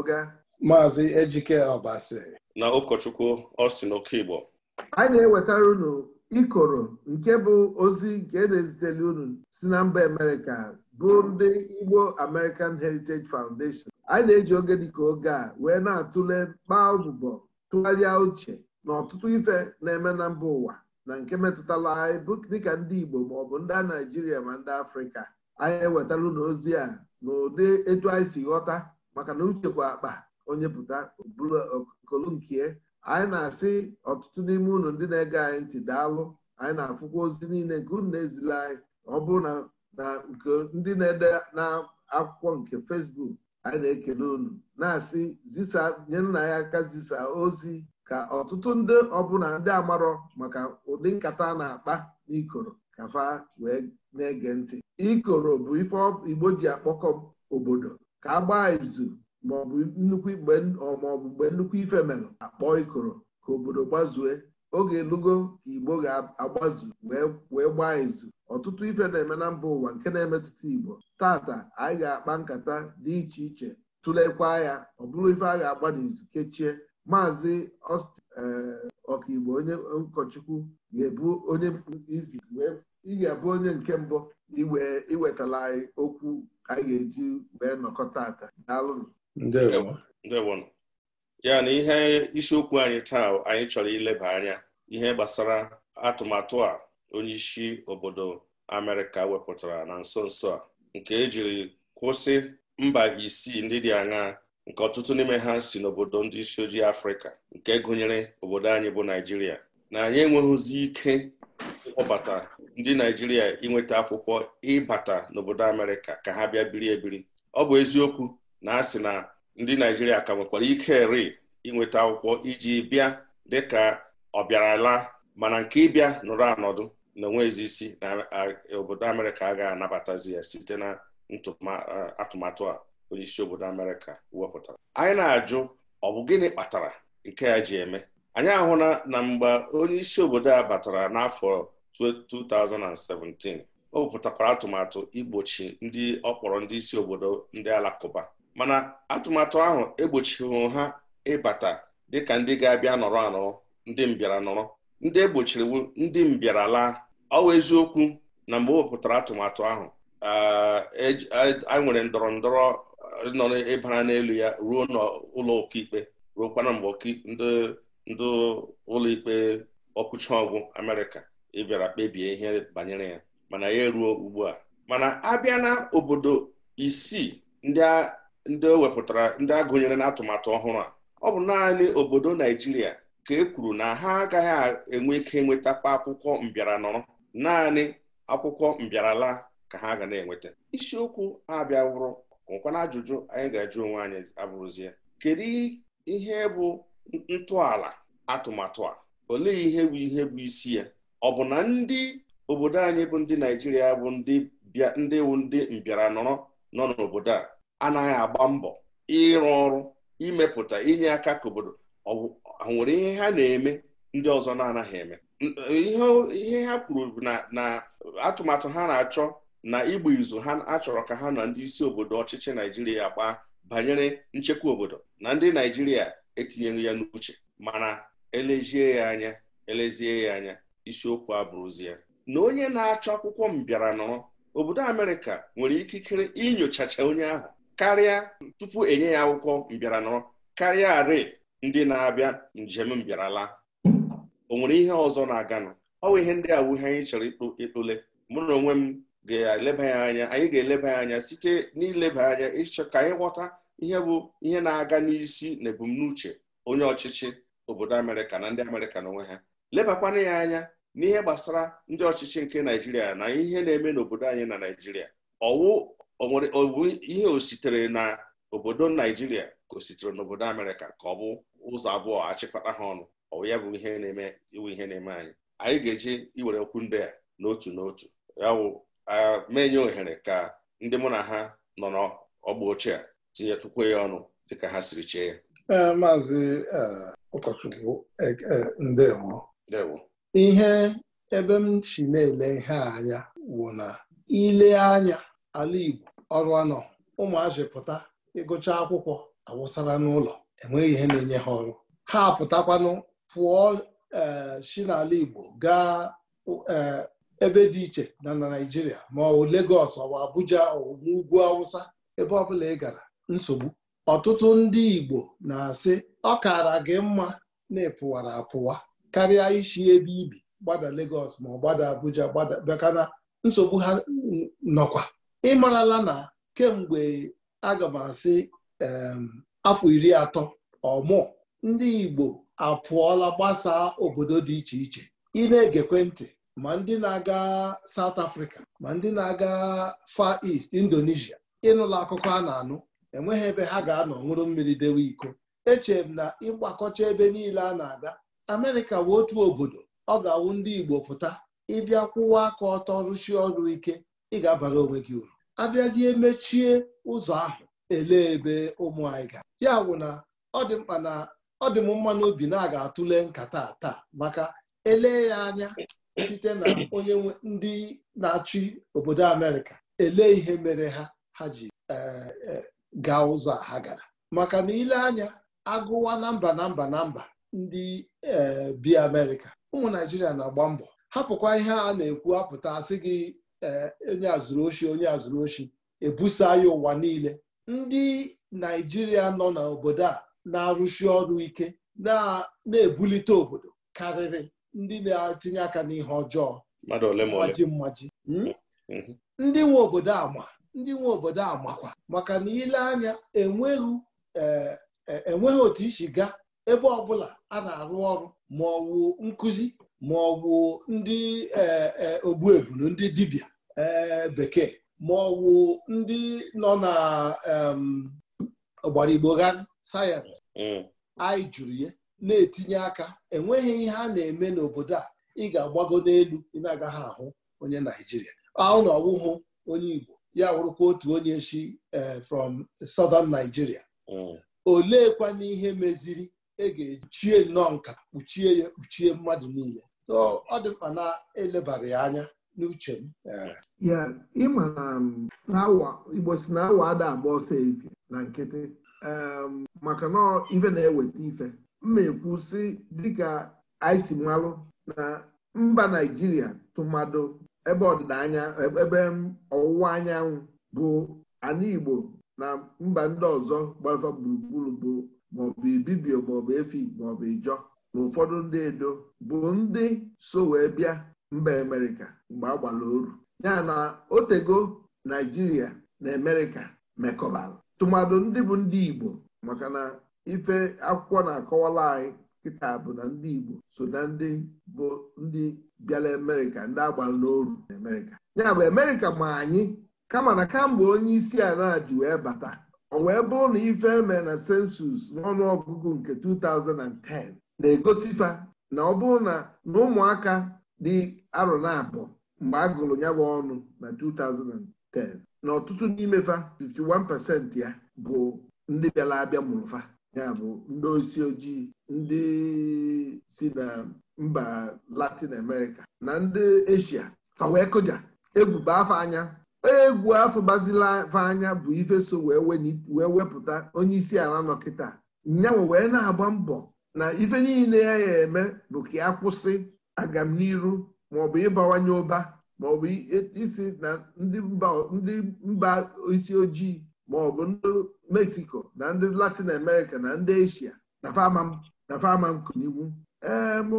oga maazị Ejike Ọbasi na ụkọchukwu Austin Okigbo anyị na-ewetara unu ikoro nke bụ ozi nke na-ezitere unu si na mba Amerịka bụ ndị Igbo American Heritage Foundation anyị na-eji oge dịka oge a wee na-atụle kpaa ọbụbọ tụgharịa uche na ọtụtụ ife na-eme na mba ụwa na nke metụtara anyị dịka ndị Igbo maọbụ ndị Naijiria ma ndị Afrịka anyị ewetara unu ozi a n'ụdị etu anyị si ghọta maka na uche kwa akpa onye pụta buru e, anyị na-asị ọtụtụ n'ime unu ndị na-ege anyị ntị daalụ anyị na-afụkwa ozi niile nke unu na-ezila anyị ọ bụrụ na na nke ndị na-ede na akwụkwọ nke fesbuk anyị na-ekele unu na-asị zisa nye nna ya aka zisa ozi ka ọtụtụ ndị ọbụla ndị amarọ maka ụdị nkata a na-akpa n'ikoro ka fa wee na-ege ntị ikoro bụ ife Igbo ji akpọkọ obodo ka agbaa izu maọbụ nnukwu mgbe nnukwu ife mere akpọọ ikoro ka obodo gbazue oge elugo ka igbo ga-agbazu wee gbaa izu ọtụtụ ife na-eme na mba ụwa nke na-emetụta igbo tata anyị ga-akpa nkata dị iche iche tụlekwa ya ọ bụrụ ife a ga-agba n'izu kechie maazị eh, ọkigbo onye ụkọchukwu ga-ebu onye izi wee ị ga-abụ onye nke mbụ iwetala anyị okwu anyị ga-eji wee nọkọ taata daalụnụ ya na ihe isiokwu anyị taa anyị chọrọ ileba anya ihe gbasara atụmatụ a onye isi obodo Amerịka wepụtara na nso nso a nke ejiri kwụsị mba isii ndị dị aṅaa nke ọtụtụ n'ime ha si n'obodo ndị isi ojii Afrịka nke gụnyere obodo anyị bụ Naịjirịa na anyị enweghịzi ike ịkpọbata ndị naijiria inweta akwụkwọ ịbata n'obodo amerịka ka ha bịa biri ebiri ọ bụ eziokwu na a sị na ndị naijiria ka nwekwara ike ri inweta akwụkwọ iji bịa dịka ọbịarala mana nke ịbịa nụrụ anọdụ na isi na obodo amerịka a ga-anabatazi ya site na atụmatụ a onye isi obodo amerịka wepụtara anyị na-ajụ ọ bụ gịnị kpatara nke ya ji eme anyị ahụla na mgbe onye isi obodo a batara n'afọ 2017 o wepụtakwara atụmatụ igbochi ndị ọ ndị isi obodo ndị alakụba mana atụmatụ ahụ egbochighị ha ịbata dịka ndị ga-abịa nọrọ anọrọ ndị mbịara nọrọ ndị egbochiri ndị mbịara laa ọ eziokwu na mgbe o atụmatụ ahụ eh, e a nwere ndọrọ ndọrọ eh, nọ ịbara n'elu ya ruo n'ụlọ ruo ruokwana mgbe ndị ụlọ ikpe ọkụcha ọgwụ Amerịka ị bịara kpebie ihe banyere ya mana ya eruo ugbu a mana abịa na obodo isii ndị wepụtara ndị agụnyere n'atụmatụ ọhụrụ a ọ bụ naanị obodo Naijiria ka e kwuru na ha agaghị enwe ike enwetakwa akwụkwọ mbịara nọrọ naanị akwụkwọ mbịarala ka ha ga na-enweta isiokwu abịa wụrụ nwekwana ajụjụ anyị ga-ajụ onwe anyị abụrụzie kedu ihe bụ ntọala atụmatụ a olee ihe bụ ihe bụ isi ya ọ bụ na ndị obodo anyị bụ ndị Naijiria bụ ndị wu ndị mbịara nọrọ nọ n'obodo a anaghị agba mbọ ịrụ ọrụ imepụta inye aka ka obodo nwere ihe ha na-eme ndị ọzọ na-anaghị eme ihe ha kwuru na atụmatụ ha na-achọ na igba izu ha achọrọ ka ha na ndị isi obodo ọchịchị Naijiria gbaa banyere nchekwa obodo na ndị Naijiria etinyeghị ya n'uche mana elezie ya anya elezie ya anya isiokwu abụrụzi ya na onye na-achọ akwụkwọ mbịara nọrọ obodo Amerịka nwere ikikere inyochacha onye ahụ karịa tupu enye ya akwụkwọ mbịara nọrọ karịa arị ndị na-abịa njem mbịarala o nwere ihe ọzọ na-aganụ ọ bụ ihe ndị awuhe anyị chọrọ ịkpụle mụ na onwe m ga-eleba ya anya anyị ga-eleba ya anya site n'ileba anya ịchọ ka anyị ghọta ihe bụ ihe na-aga n'isi na ebumnuche onye ọchịchị obodo Amerịka na ndị Amerịka na onwe ha lebakwana ya anya n'ihe gbasara ndị ọchịchị nke naijiria na ihe na-eme n'obodo anyị na naijiria ọwụ ọbụ ihe o sitere na obodo naijiria ka o sitere n'obodo amerịka ka ọ bụ ụzọ abụọ achịkọta ha ọnụ ọwụ ya bụ ihe na-eme iwu ihe na-eme anyị anyị ga-eji iwere okwu ndị a n'otu n'otu ya bụ menye ohere ka ndị mụ na ha nọ n'ọgba ochie a tinyetụkwa ya ọnụ dịka ha siri chee ya eh, maazị eh, ụkọchukwu eh, ndewo ihe ebe m si na-ele ihe a anya wụ na ile anya ala Igbo ọrụ anọ ụmụazị pụta ịgụcha akwụkwọ awụsara n'ụlọ enweghị ihe na-enye ha ọrụ ha apụtakwanụ pụọ e, si n'ala Igbo gaa e, ebe dị iche na naijiria Naịjirịa ma ọ Legọs ọwa Abuja ọwụ Ugwu Awụsa ebe ọbụla ị gara nsogbu ọtụtụ ndị Igbo na-asị ọ kara gị mma na-epụwara apụwa karịa ishi ebe ibi gbada legos ma ọ gbada Abuja gbada bakana nsogbu ha nọkwa ịmarala na kemgbe aga m asị afọ iri atọ ọmụ ndị Igbo apụọla gbasaa obodo dị iche iche ị na-egekwe ntị ma ndị na-aga Saụt Afrịka, ma ndị na-aga Fa East Indonesia ịnụla akụkọ a na-anụ enweghị ebe ha ga-anọ nwụrụ mmiri dewe iko echere m na ịgbakọcha ebe niile a na-aga amerịka bụ otu obodo ọ ga-awụ ndị igbo pụta ịbịa kwụwa aka ọtọ rụchie ọrụ ike ị ga-abara onwe gị uru abịazie mechie ụzọ ahụ elee ebe ụmụ anyị ga ya bụ na ọ dị mkpa na ọ dị m mma n'obi na a ga-atụle nkata taa maka ele ya anya site na onye ndị na-achị obodo amerịka ele ihe mere ha ha ji e, e, gaa ụzọ ha gara maka na ile anya agụwa na mba na mba na mba ndị eh, bi Amerịka ụmụ Naijiria na-agba mbọ hapụkwa ihe a na-ekwu apụta asị gị eh, onye azụrụ ochie onye azụrụ ochie ebusa ya ụwa niile ndị Naijiria nọ n'obodo a na-arụsi ọrụ ike na-ebulite obodo karịrị ndị na-etinye aka n'ihe ọjọọ mmaji mmaji hmm? mm-hmm. ndị nwe obodo ama ndị nwe obodo amakwa maka na ile anya eh, enweghị otu isi gaa ebe ọbụla a na-arụ ọrụ ma ọ wụ nkụzi ma ọ wụ ndị e, e, ogbuebulu ndị dibịa e, bekee ma ọ wụ ndị nọ na ọgbara igbo sayensị mm. anyị jụrụ ya na-etinye aka enweghị ihe a na-eme n'obodo a ị ga-agbago n'elu ị ahụ onye Naijiria ahụ na ọwụhụ onye Igbo ya wụrụkwa otu onye si from Southern Nigeria mm. oleekwana ihe meziri e ga-echie nnọọ nka kpuchie ya kpuchie mmadụ niile ọ dị mkpa na-elebara ya anya n'uche m ya ịma na um, igbo si na awa ada agba ọsọ ezi na nkịtị um, maka na ife na-eweta ife mma ekwu si dịka anyị si malụ na mba naijiria tụmadụ ebe ọdịda anya ebe um, ọwụwa anyanwụ bụ ana igbo na mba ndị ọzọ gbara gburugburu bụ maọbụ ibibio maọbụ efi maọbụ ijọ na ụfọdụ ndị edo bụ ndị so wee bịa mba amerịka mgbe a gbara oru ya na otego naijiria na amerịka mekọbara tụmadụ ndị bụ ndị igbo maka na ife akwụkwọ na-akọwala anyị kịta bụ na ndị igbo so na ndị bụ ndị bịara amerịka ndị agbara n'oru na amerịka ya bụ amerịka ma anyị kama na kamgbe onye isi ala ji wee bata o wee bụrụ na ife eme na sensus n'ọnụọgụgụ nke 2010 na-egosipa na ọ bụrụ na ụmụaka dị arọ na abụọ mgbe a gụrụ ya ọnụ na 2010 na ọtụtụ n'imefa 51% ya bụ ndị bịara abịa mụrụ fa ya bụ ndị osi ojii ndị si na mba Latin America na ndị Asia fa wee kụja egwu afọ anya egwu afọ gbazila anya bụ ife so wee wepụta onye isi ala nọ kịta nyanwe wee na-agba mbọ na ife niile ya ya eme bụ ka ya kwụsị agamniru maọbụ ịbawanye ụba maọbụ e- isi na ndị mba isi ojii maọbụ ndị mexico na ndị latin america na ndị eshia na fama ee ehm,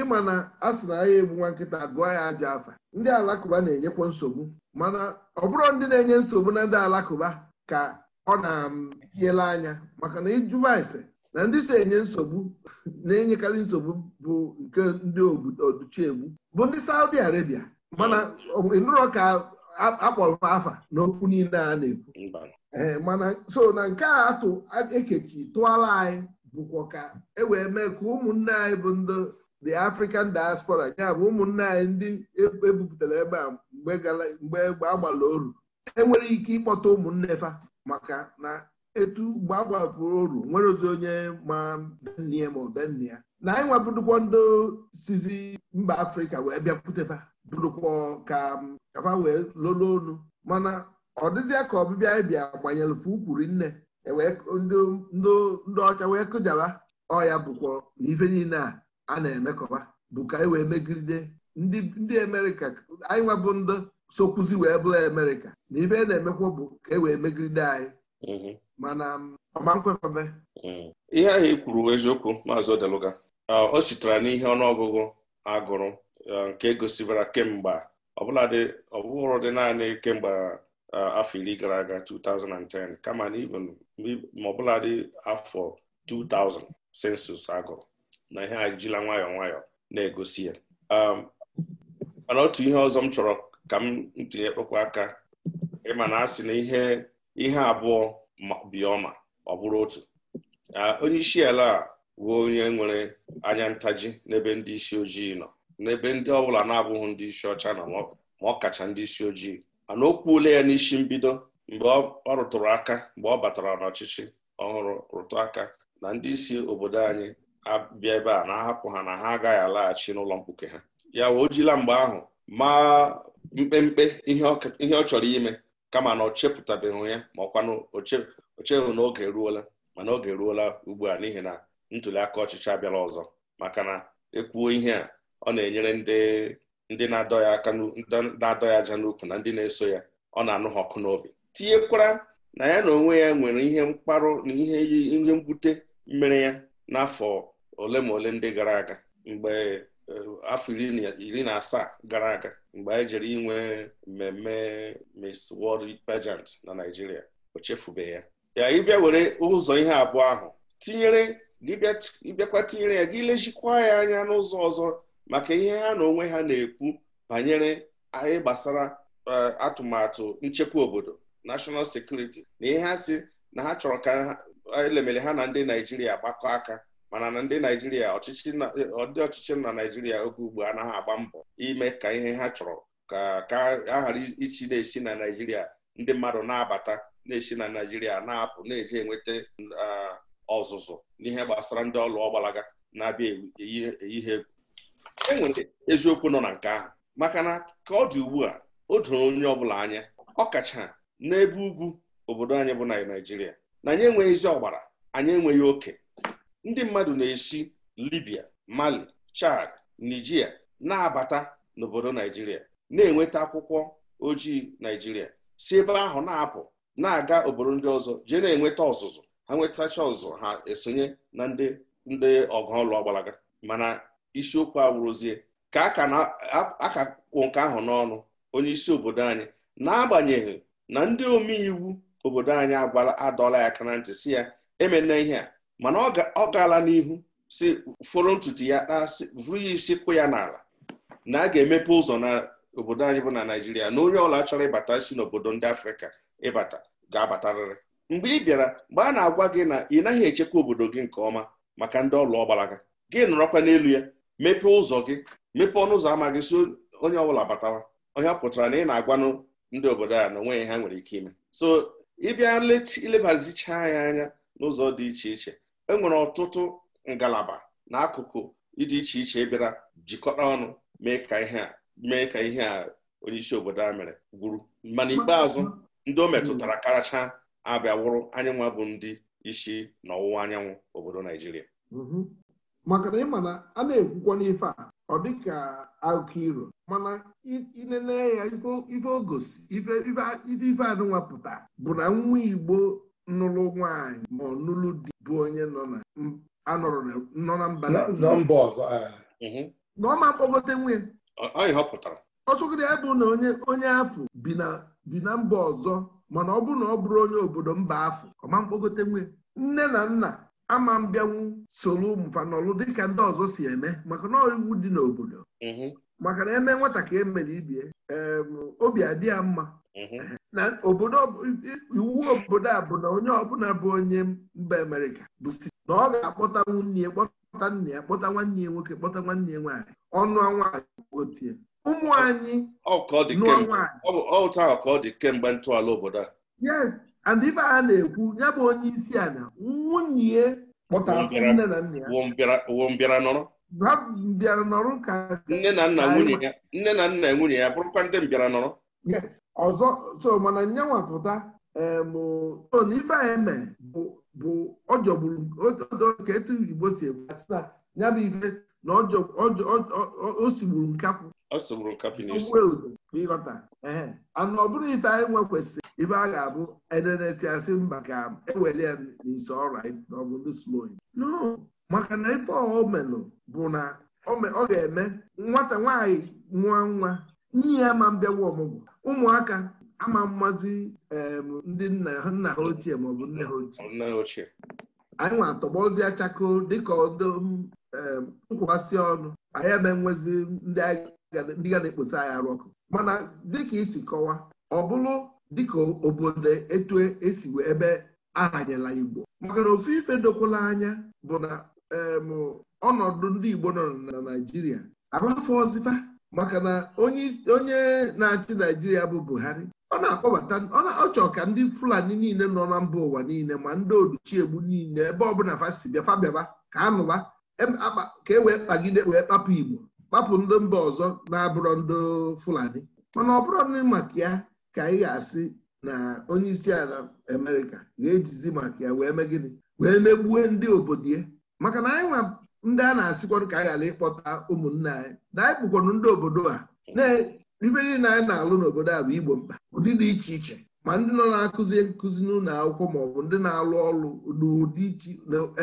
ịma na a sị na ahịa egbu nwa nkịta gụọ ya ajọ afa ndị alakụba na-enyekwa nsogbu mana ọ bụrụ ndị na-enye nsogbu na ndị alakụba ka ọ na-etinyela anya maka na ịjụba ese na ndị so enye nsogbu na-enyekarị nsogbu bụ nke ndị oduchiegbu bụ ndị Saudi Arabia mana ịnụrọ ka akpọrọ afa n'okwu niile a na-ekwu ehm, mana so na nke a atụ ekechi tụọla anyị bụkwa ka e wee mee ka ụmụnne anyị bụ ndị the African diaspora ya bụ ụmụnne anyị ndị ebupụtara e ebe a mgbe gbala oru enwere ike ịkpọta ụmụnne fa maka na etu mgbe agbapụrụ oru nwere ozi onye ma benne ma ọbenne na anyị nwabụdụkwa ndị sizi mba Afrịka wee bịapụtefa bụrụkwa ka kafa wee lolo onu mana ọ dịzịa ka ọbịbịa anyị bịa gbanyere fe nne E ndị ọcha wee kụjaba ọya bụkwa na ife niile a a na-emekọba bụ ka anyị wee megide ndị Amerịka anyị nwebụ ndị sokwuzi wee bụrụ Amerịka na ibe e na-emekwa bụ ka e wee megide anyị mm-hmm. mana um, ọma mm. ihe ahụ i e kwuru eziokwu maazị Odeluga uh, o sitere n'ihe ọnụọgụgụ agụrụ uh, nke gosibara kemgbe ọbụladị ọbụrụ dị naanị kemgbe uh, afọ iri gara aga 2010 kama na ma ọbụladị afọ 2000 sensus agụrụ na ihe a jila nwayọọ nwayọọ na-egosi ya um, mana otu ihe ọzọ m chọrọ ka m ntinye kpụkwa aka ịma na asị na ihe ihe abụọ bioma ọ bụrụ otu uh, onye isi ala a bụ onye nwere anya ntaji n'ebe ndị isi ojii nọ n'ebe ndị ọbụla na-abụghị ndị isi ọcha nọ ma ọ kacha ndị isi ojii mana o kwuola ya n'isi mbido mgbe ọ rụtụrụ aka mgbe ọ batara n'ọchịchị ọhụrụ rụtụ aka na ndị isi obodo anyị abịa ebe a na-ahapụ ha na ha agaghị alaghachi n'ụlọ mkpuke ha ya wee jila mgbe ahụ ma mkpemkpe ihe ọ chọrọ ime kama na ọ chepụtabeghị ya ma ọkwanụ ochehụ na oge eruola mana oge eruola ugbu a n'ihi na ntuli aka ọchịchị abịala ọzọ maka na ekwuo ihe a ọ na-enyere ndị na-adọ ya aka na-adọ ya aja n'ukwu na ndị na-eso ya ọ na-anụ ha ọkụ n'obi tinyekwara na ya na onwe ya nwere ihe mkparụ na ihe ihe mgbute mmere ya n'afọ ole ma ole ndị gara aga mgbe eh, afọ iri na asaa gara aga mgbe anyị jere inwe mmemme Miss World Pageant na Naịjirịa o chefubeghị ya ya ịbịa were ụzọ ihe abụọ ahụ tinyere ịbịakwa tinyere ya gị lejikwa ya anya n'ụzọ ọzọ maka ihe ha na onwe ha na-ekwu banyere anyị gbasara eh, atụmatụ nchekwa obodo national security na ihe ha si na ha chọrọ ka elemele ha na ndị naijiria gbakọ aka mana na ndị naijiria ọdị ọchịchị na naijiria oge ugbu anaghị agba mbọ ime ka ihe ha chọrọ ka ka a ghara ichi na-esi na naijiria ndị mmadụ na-abata na-esi na naijiria na-apụ na-eje enweta ọzụzụ n'ihe gbasara ndị ọlụ ọgbalaga na-abịa eyi ha egwu enwere eziokwu nọ na nke ahụ maka na ka ọ dị ugbu a o doro onye ọbụla anya ọ kacha n'ebe ugwu obodo anyị bụ na na anyị enweghị ezi ọgbara anyị enweghị oke ndị mmadụ na-esi Libya Mali Chad Nigeria na-abata n'obodo Naijiria na-enweta akwụkwọ ojii Naijiria si ebe ahụ na-apụ na-aga obodo ndị ọzọ jee na-enweta ọzụzụ ha nwetacha ọzụzụ ha esonye na ndị ndị ọgụ ọlụ mana isiokwu awụrụzie ka a ka kwụ nke ahụ n'ọnụ onye isi obodo anyị n'agbanyeghị na ndị omeiwu obodo anyị adọla ya aka na ntị si ya emena ihe a mana ọ gaala n'ihu si foro ntutu ya vụrụ ya isi kwụ ya n'ala na a ga-emepe ụzọ na obodo anyị bụ na Naịjirịa na onye ọla chọrọ ịbata si n'obodo ndị Afrịka ịbata ga-abatarịrị mgbe ị bịara mgbe a na-agwa gị na ị naghị echekwa obodo gị nke ọma maka ndị ọlụ ọgbara gị gị nọrọkwa n'elu ya mepee ụzọ gị mepee ọnụ ụzọ ama gị so onye ọbụla batawa onye pụtara na ị na-agwanụ ndị obodo a na onwe ha nwere ike ime so ịbịa ilebazicha ya anya n'ụzọ dị iche iche enwere ọtụtụ ngalaba n'akụkụ akụkụ dị iche iche e bịara jikọta ọnụ mee ka ihe a mee ka ihe a onyeisi obodo a mere gwuru mana ikpeazụ ndị o metụtara karacha abịa wụrụ bụ ndị isi na ọwụwa anyanwụ obodo Naijiria mhm. maka ịma na a na-ekwukwa n'ife a ọ dịka mana inene ya ife ogosi ife anụnwa pụta bụ na nwa Igbo nụlụ nwaanyị ma ọnụlụ dị bụ onye nọ na mba na ọma mkpọgote nwunye ọtụgịrị ya bụ na onye afụ bi na mba ọzọ mana ọ bụrụ na ọ bụrụ onye obodo mba afụ ọma mkpọgote nwe nne na nna ama mbịanwu soro ụmụfa dịka ndị ọzọ si eme maka na iwu dị n'obodo mm-hmm. maka na eme nwata ka emere ibie obi adị ya mma mhm. na obodo iwu obodo a bụ na onye ọbụla bụ onye mba amerika bụ site na ọ ga-akpọta nwunye ya kpọta nne ya kpọta nwanne ya nwoke kpọta nwanne ya nwaanyị ọnụ nwaanyị otie ụmụ anyị ọ dị kemgbe ntọala obodo a yes and ife a na-ekwu ya bụ onye isi ala nwunye kpọtara nne na nna ya wo mbịara nọrọ ha bịara nọrọ ka nne na nna nwunye ya nne na nna nwunye ya bụrụkwa ndị m nọrọ ọzọ so mana nyanwa pụta emton ife eme bụ ọjọgburu ka etu igbo si egwu asị na ya bụ ife na osigburu nkapụ ịghọta ee anụ ọ bụrụ ife anyị e nwe kwesịrị ife a ga-abụ e, e, asị mba ka eweli ya n'ise ọrụ anyị na ọbụrụ slow maka na ife ọ melụ bụ na ọ ga-eme nwata nwaanyị nwa nwa nye ya ma mbịawa ọmụgwọ ụmụaka ama mmazi ndị nna ha ochie maọbụ nne ha ochie anyị nwa atọgbọzi achakụ dịka nkwụwasị ọnụ anyị eme nwezi ndị ga na-ekposa anyị arụ ọkụ mana dịka isi kọwa ọ bụrụ dịka obodo etu esi e ebe ahanyela Igbo maka na ofu ife dokwala anya bụ na ọnọdụ ndị Igbo nọ na Naịjirịa afọ ọzịfa maka na onye na-achị Naijiria bụ Buhari ọ na-akpọbata ọ chọrọ ka ndị Fulani niile nọ na mba ụwa niile ma ndị Oluchiegbu niile ebe ọbụla fasibịafabiaba ka anụba ka e wee kpagide wee kpapụ Igbo kpapụ ndị mba ọzọ na-abụrọ ndị Fulani mana ọ bụrụ maka ya ka ị ga-asị na onye isi ala Amerịka ga-ejizi maka ya wee mee gịnị wee megbue ndị obodo ya maka na anyị nwa ndị a na-asịkwanụ ka anyị ghara ịkpọta ụmụnne anyị na anyị bụkwanụ ndị obodo a ife niile anyị na-alụ n'obodo a bụ igbo mkpa ụdị dị iche iche ma ndị nọ na-akụzi nkụzi n'ụlọ akwụkwọ ma ọ bụ ndị na-alụ ọrụ n'ụdị iche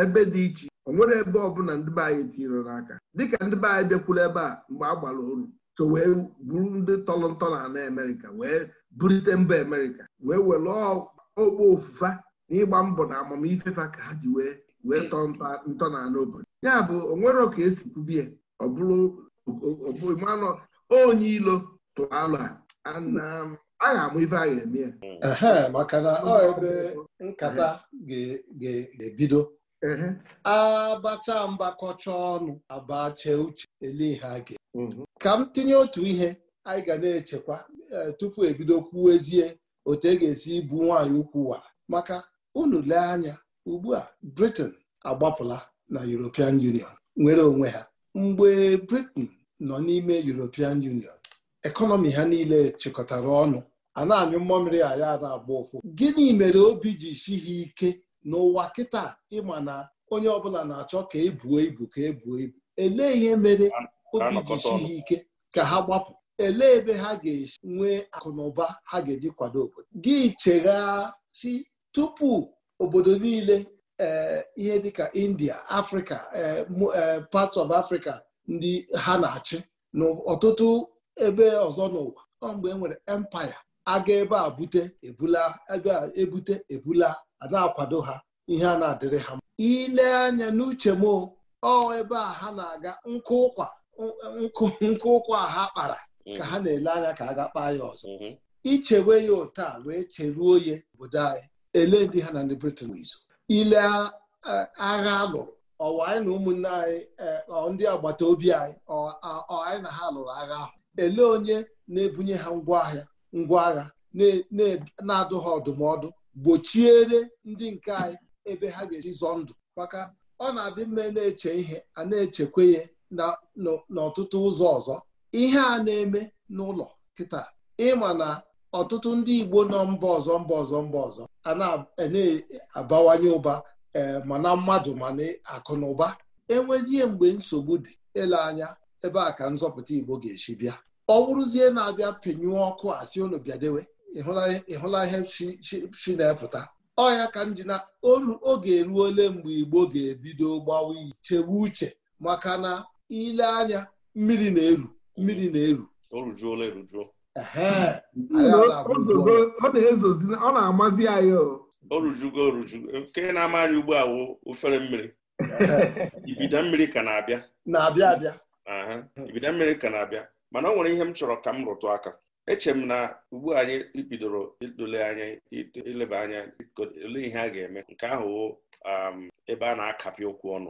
ebe dị iche o nwere ebe ọbụla ndị be anyị tinyere n'aka dịka ndị be anyị bịakwuru ebe a mgbe a gbara oru so wee buru ndị tọrọ ntọ na ana Amerịka wee burite mba Amerịka wee were ogbe ofufa na ịgba mbọ na amamifefa ka ha ji wee wee tọọ ntọala obodo ya bụ onwero ka esi kwubie ọ bụrụ manụ onye ilo tụrụ alụ a ga-amụ ife a ga-eme ya maka na ọ ebe nkata ga-ebido abacha mgbakọcha ọnụ abacha uche elihe ga ka m tinye otu ihe anyị ga na-echekwa e, tupu ebido kwuo ezie otu e ga-esi ibu nwaanyị ukwu wa maka unu lee anya ugbu a Britain agbapụla na European Union nwere onwe ha mgbe Britain nọ n'ime European Union ekọnọmi ha niile chịkọtara ọnụ a na-anyụ mmamịrị a na-agba ụfụ gịnị mere obi ji si ha ike n'ụwa kịta ịma na onye ọbụla na-achọ ka ebuo ibu ka ebuo ibu elee ihe mere obi ji si ha ike ka ha gbapụ elee ebe ha ga-esi nwee akụnụba ha ga-eji kwado obodo gị chegha si tupu obodo niile eh, ihe dịka india afrịka eh, eh, parts of africa ndị ha na-achị n'ọtụtụ ebe ọzọ n'ụwa ọ mgbe e nwere empire aga ebe a bute ebula ebe a ebute ebula a na-akwado ha ihe a na-adịrị ha ile anya n'uche m ọ ebe a ha na-aga nkụ ụkwa nkụ ụkwa ha kpara mm-hmm. ka ha na-ele anya ka a ga kpaa ya ọzọ mm-hmm. ichewe ya ụta wee cheruo ya obodo anyị ele ndị ha na ndị Britain n'izu ile agha lụrụ ọwa anyị na ụmụnne anyị e, ndị agbata obi anyị ọ anyị na ha lụrụ agha ahụ ele onye na-ebunye ha ngwaahịa ngwa agha na-adụ ha ọdụmọdụ gbochiere ndị nke anyị ebe ha ga-eji zọọ ndụ maka ọ na-adị mma na-eche ihe a na-echekwa ya n'ọtụtụ ụzọ ọzọ ihe a na-eme n'ụlọ kịta ịma na ọtụtụ ndị Igbo nọ mba ọzọ mba ọzọ mba ọzọ a na-abawanye ụba e, mana mmadụ mana akụ na ụba enwezie mgbe nsogbu dị ele anya ebe a ka nzọpụta Igbo ga-esi bịa ọ bụrụzie na-abịa penyụọ ọkụ asị unu bịadewe ịhụla ihe chi na-epụta ọ ya ka ndị ji na oge eruole mgbe Igbo ga-ebido gbawa ichewe uche maka na ile anya mmiri na-eru mmiri na-eru ọ na-amazi anyị orujugo orujugo nke na-ama anyị ugbu a ofere mmiri ibida mmiri ka na-abịa na-abịa abịa ibida mmiri ka na-abịa mana ọ nwere ihe m chọrọ ka m rụtụ aka eche m na ugbu anyị bidoro idole anya ileba anya ole ihe a ga-eme nke ahụ um, ebe a na-akapị okwu ọnụ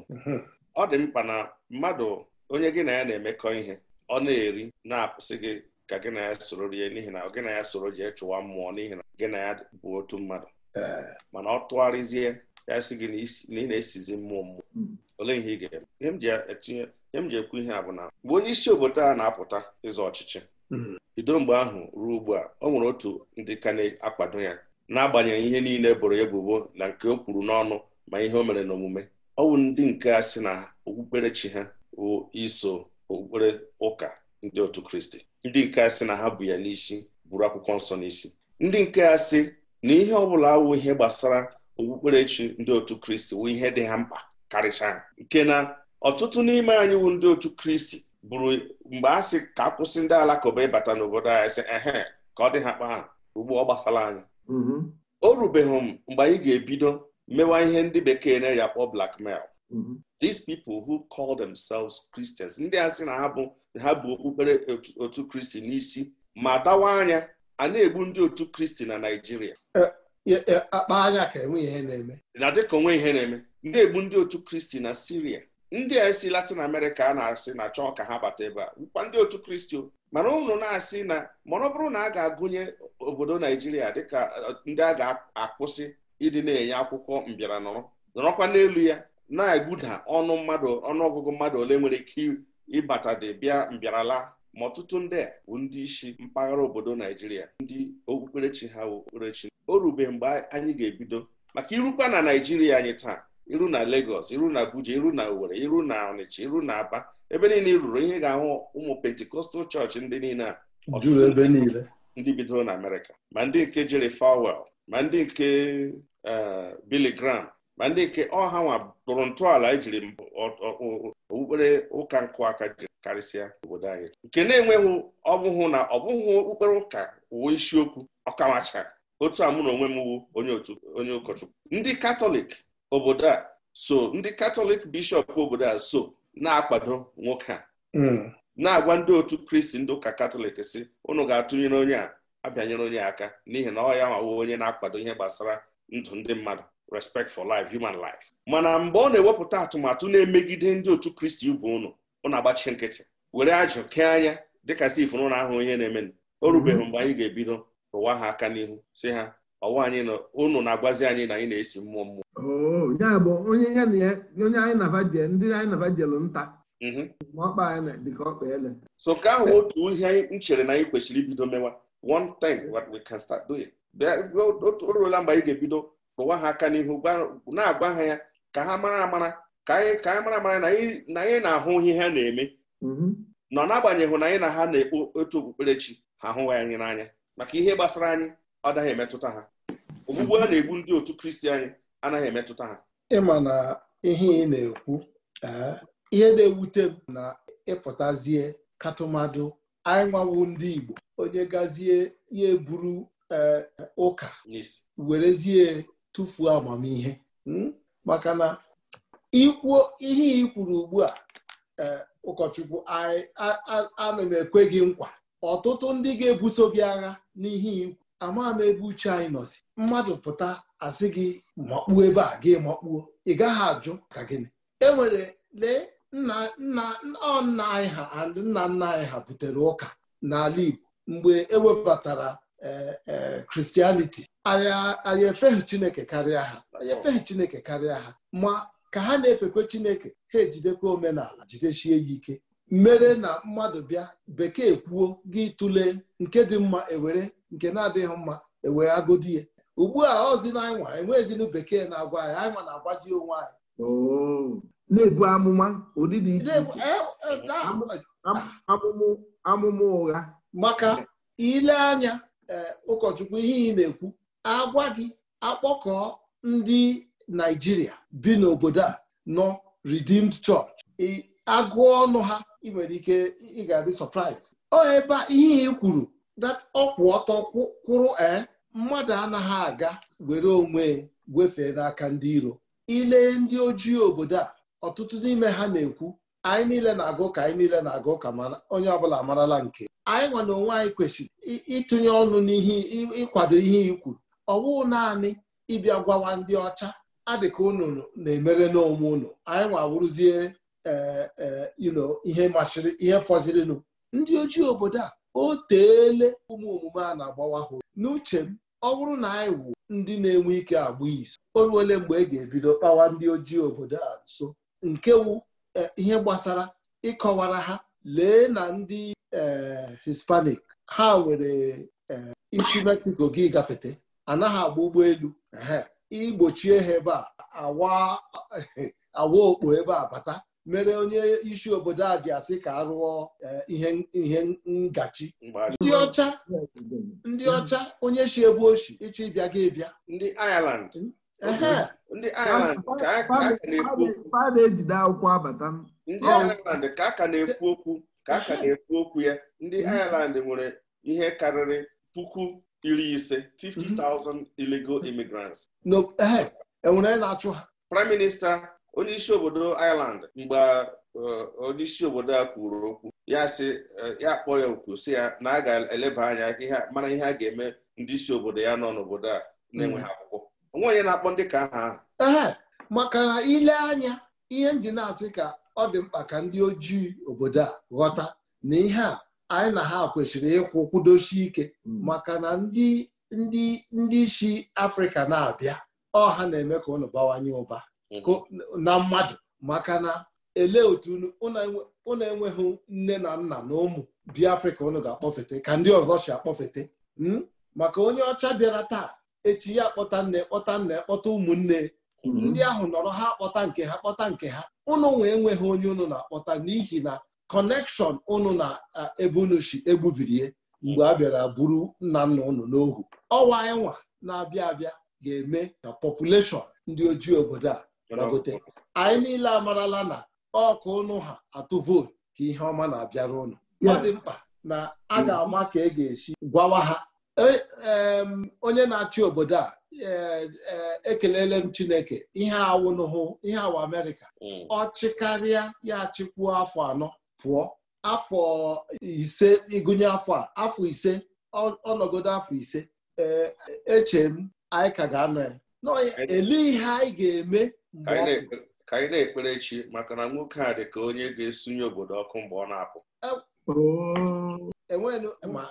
ọ dị mkpa na mmadụ onye gị na ya na-emekọ ihe ọ na-eri na-apụsị gị ka gị na ya soro rie n'ihi na gị na ya soro jee chụwa mmụọ n'ihi na gị na ya bụ otu mmadụ mana ọ tụgharịzie ya sị mm. gị e na ị na-esizi mmụọ mmụọ ole ihe ị ga-eme ihe m ji ekwu ihe a bụ na mgbe onye isi obodo a na-apụta ịzọ ọchịchị bido mgbe ahụ ruo ugbu a ọ nwere otu ndị ka na-akwado ya n'agbanyeghị ihe niile boro ebubo na nke o kwuru n'ọnụ ma ihe o mere n'omume ọ bụ ndị nke a sị na okpukperechi ha bụ iso okpukpere ụka ndị otu kristi ndị nke a sị na ha bụ ya n'isi buru akwụkwọ nsọ n'isi ndị nke a sị na ihe ọ bụla awụ ihe gbasara okpukperechi ndị otu kristi wụ ihe dị ha mkpa karịcha nke na ọtụtụ n'ime anyị wụ ndị otu kristi bụrụ mgbe a sị ka akwụsị ndị alakụba ịbata n'obodo anyị sị ehe ka ọ dị ha kpaa ugbu ọ gbasara anyị mm-hmm. o rubeghị m mgbe anyị ga-ebido mewa ihe ndị bekee na-eji akpọ blackmail mm-hmm. these people who call themselves Christians ndị a sị na ha bụ ha bụ okpukpere otu kristi n'isi ma dawa anya a na-egbu ndị otu kristi na Naịjirịa e, e, e, akpa anya ka enweghị ihe na-eme na dịka onwe ihe na-eme na-egbu ndị otu kristi na Siria ndị a si Latin America a na-asị na chọọ ka ha bata ebe a nkwa ndị otu kristi mana ụnụ na-asị na mana ọ bụrụ na a ga-agụnye obodo Naịjirịa dịka ndị a ga-akwụsị ịdị na-enye akwụkwọ mbịara nọrọ nọrọkwa n'elu ya na-egbuda ọnụ mmadụ ọnụọgụgụ mmadụ ole nwere ike ịbatadị bịa mbịarala ma ọtụtụ ndị a bụ ndị isi mpaghara obodo Naijiria ndị okpukperechi ha okpukperechi o rube mgbe anyị ga-ebido maka irukwa na Naijiria anyị taa iru na legos iru na Abuja iru na Owerri iru na Ọnịcha iru na Aba ebe niile i ruru ihe ga-ahụ ụmụ pentikọstal chọọchị ndị niile a ndị bidoro na Amerịka ma ndị nke Jerry Falwell ma ndị nke eh, Billy Graham ma ndị nke ọha nwa tụrụ ntọala ejiri okpukpere ụka nkụ aka ji karịsịa obodo anyị nke na-enweghị ọbụhụ na ọbụghụ okpukpere ụka uwe isiokwu ọkamacha otu a mụ na onwe m wu onye ụkọchukwu ndị katọlik obodo a so ndị katọlik bishọp obodo a so na-akwado nwoke a hmm. na-agwa ndị otu kristi ndị ụka katọlik si ụnụ ga-atụnyere onye a abịanyere onye aka n'ihi na ọ ya nwawo onye na-akwado ihe gbasara ndụ ndị mmadụ respect for life human life mana mgbe ọ na-ewepụta atụmatụ na-emegide ndị otu kristi ibu ụnụ ọ na-agbachi nkịtị were ajụ kee anya dịka sif nụ na ahụ ihe na-emenụ o mhm. rubeghị mgbe anyị ga-ebido ụwa ha aka n'ihu si ha ọwa anyị na unu na-agwazi anyị na anyị na-esi mmụọ mmụọ oh, ya bụ onye anyị nabajel ndị anyị nabajelu nta mhm. ọkpa anyị dịka ọkpa ele so nke ahụ otu ihe anyị chere na anyị kwesịrị ibido mewa one thing what we can start doing o ruola mgbe anyị ga-ebido rụwa ha aka n'ihu na-agwa ha ya ka ha mara amara ka anyị mara amara na anyị na-ahụ ihe ha na-eme mhm. nọ n'agbanyeghị na anyị na ha na-ekpo otu okpukperechi ha ahụghị anyị n'anya maka ihe gbasara anyị ọ daghị emetụta ha ogbugbu a na-egbu ndị otu kristi anyị anaghị emetụta ha ịma na ihe ị na-ekwu ihe na-ewute m na ịpụtazie katụmadụ anyị nwawu ndị Igbo onye gazie ya eburu ụka werezie tụfuo amamihe hmm? maka na ikwuo ihe ị kwuru ugbu a eh, ụkọchukwu ana m ekwe gị nkwa ọtụtụ ndị ga-ebuso gị agha n'ihe ikwu ama m ebe uche anyị nọzi mmadụ pụta asị gị makpuo ebe a gị makpuo ị gaghị ajụ ka gịnị enwere lee nna nna anyị ha nna nna anyị ha butere ụka n'ala Igbo mgbe ewebatara kristianiti anyị efeghị chineke karịa ha anyị efeghị chineke karịa ha ma ka ha na-efekwe chineke ha ejidekwa omenala jidechie ya ike mere na mmadụ bịa bekee kwuo gị tụlee nke dị mma ewere nke na-adịghị mma ewere agodi ya ugbu a ọzi na anyịnwa e bekee na-agwa anyị anyịnwa na-agwazi onwe anyị oh. na-ebu amụma e, e, amụmụ ụgha maka ile anya Eh, ụkọchukwu ihe ị na-ekwu agwa gị akpọkọọ ndị naijiria bi n'obodo a nọ Redeemed Church agụọ ọnụ ha ị nwere ike ị ga-adị surprise ihe ị kwuru that ọkwụ ọtọ kwụrụ ee eh, mmadụ anaghị aga were onwe gwefee n'aka ndị iro ile ndị ojii obodo a ọtụtụ n'ime ha na-ekwu anyị niile na-agụ ka anyị niile na-agụ ka onye ọbụla marala nke anyị nwa na onwe anyị kwesịrị ịtụnye ọnụ n'ihe ịkwado ihe ikwuru ọwụ naanị ịbịa gwawa ndị ọcha adịka unu na-emere n'onwe unu anyị nwa wụrụzie e, e, ihe machiri ihe fọzirinụ ndị ojii obodo a o teele ụmụ omume a na-agbawa hụrụ n'uche m ọ bụrụ na anyị wụ ndị na-enwe ike agba izu o ruole mgbe e ga-ebido kpawa ndị ojii obodo a nso nke wụ e, ihe gbasara ịkọwara ha lee na ndị Hispanic ha nwere isi Mexico gị gafete anaghị agba ụgbọelu igbochie ha ebe a awa okpo ebe a bata mere onye isi obodo a ji asị ka arụọ ihe ngachi ndị ọcha ndị ọcha onye si ebe oshi ịchọ ịbịa gị bịa ndị Ireland ndị Ireland ka a ka na-ekwu okwu ka a ka na-ekwu okwu ya ndị mhm. Ireland nwere ihe karịrị puku iri ise 50,000 mhm. illegal immigrants enwere eh, e na-achụ ha prime minista onyeisi obodo Ireland mgbe eh, onyeisi obodo a kwuru okwu ya si, eh, ya kpọọ ya okwu si ya na a ga-eleba anya mara ihe a ga-eme ndị isi obodo ya nọ n'obodo a na-enweghị mhm. akwụkwọ onwe onye na-akpọ ndị ka aha ahụ maka na ile anya ihe ndị na-asị ka ọ dị mkpa ka ndị ojii obodo a ghọta na ihe a anyị na ha kwesịrị ịkwụ kwudosi ike hmm. maka na ndị ndị ndị isi afrịka na-abịa ọha na-eme ka ụnụ bawanye ụba hmm. na mmadụ maka na elee otu ụnụ enweghị nne na nna na ụmụ bi afrịka ụnụ ga-akpọfete ka ndị ọzọ si akpọfete hmm? maka onye ọcha bịara taa echi ya kpọta nne kpọta nna kpọta ụmụnne Mm-hmm. ndị ahụ nọrọ ha kpọta nke ha kpọta nke ha ụnụ nwe enweghị onye ụnụ na-akpọta n'ihi na kọnekshọn ụnụ na eh, ebe unu si egbubirie mgbe a bịara buru nna nna ụnụ n'ohu ọwa ịnwa na-abịa abịa ga-eme ka pọpụleshọn ndị ojii obodo a ragote anyị niile amarala na ọkụ ụnụ ha atụ vootu ka ihe ọma na-abịara ụnụ ọ dị mkpa na a ga-ama ka e ga-esi gwawa ha E, onye na-achị obodo a e, e, ekelele m Chineke ihe awụnụhụ ihe awụ Amerịka hmm. ọ chịkarịa ya achịkwuo afọ anọ pụọ afọ ise ịgụnye afọ a afọ ise ọnọgodo afọ ise eche m anyị ka ga-anọ ya n'ele ihe anyị ga-eme mgbe ka anyị na-ekpere chi maka na nwoke a dị ka onye ga-esunye obodo ọkụ mgbe ọ na-apụ oh. enwenu ma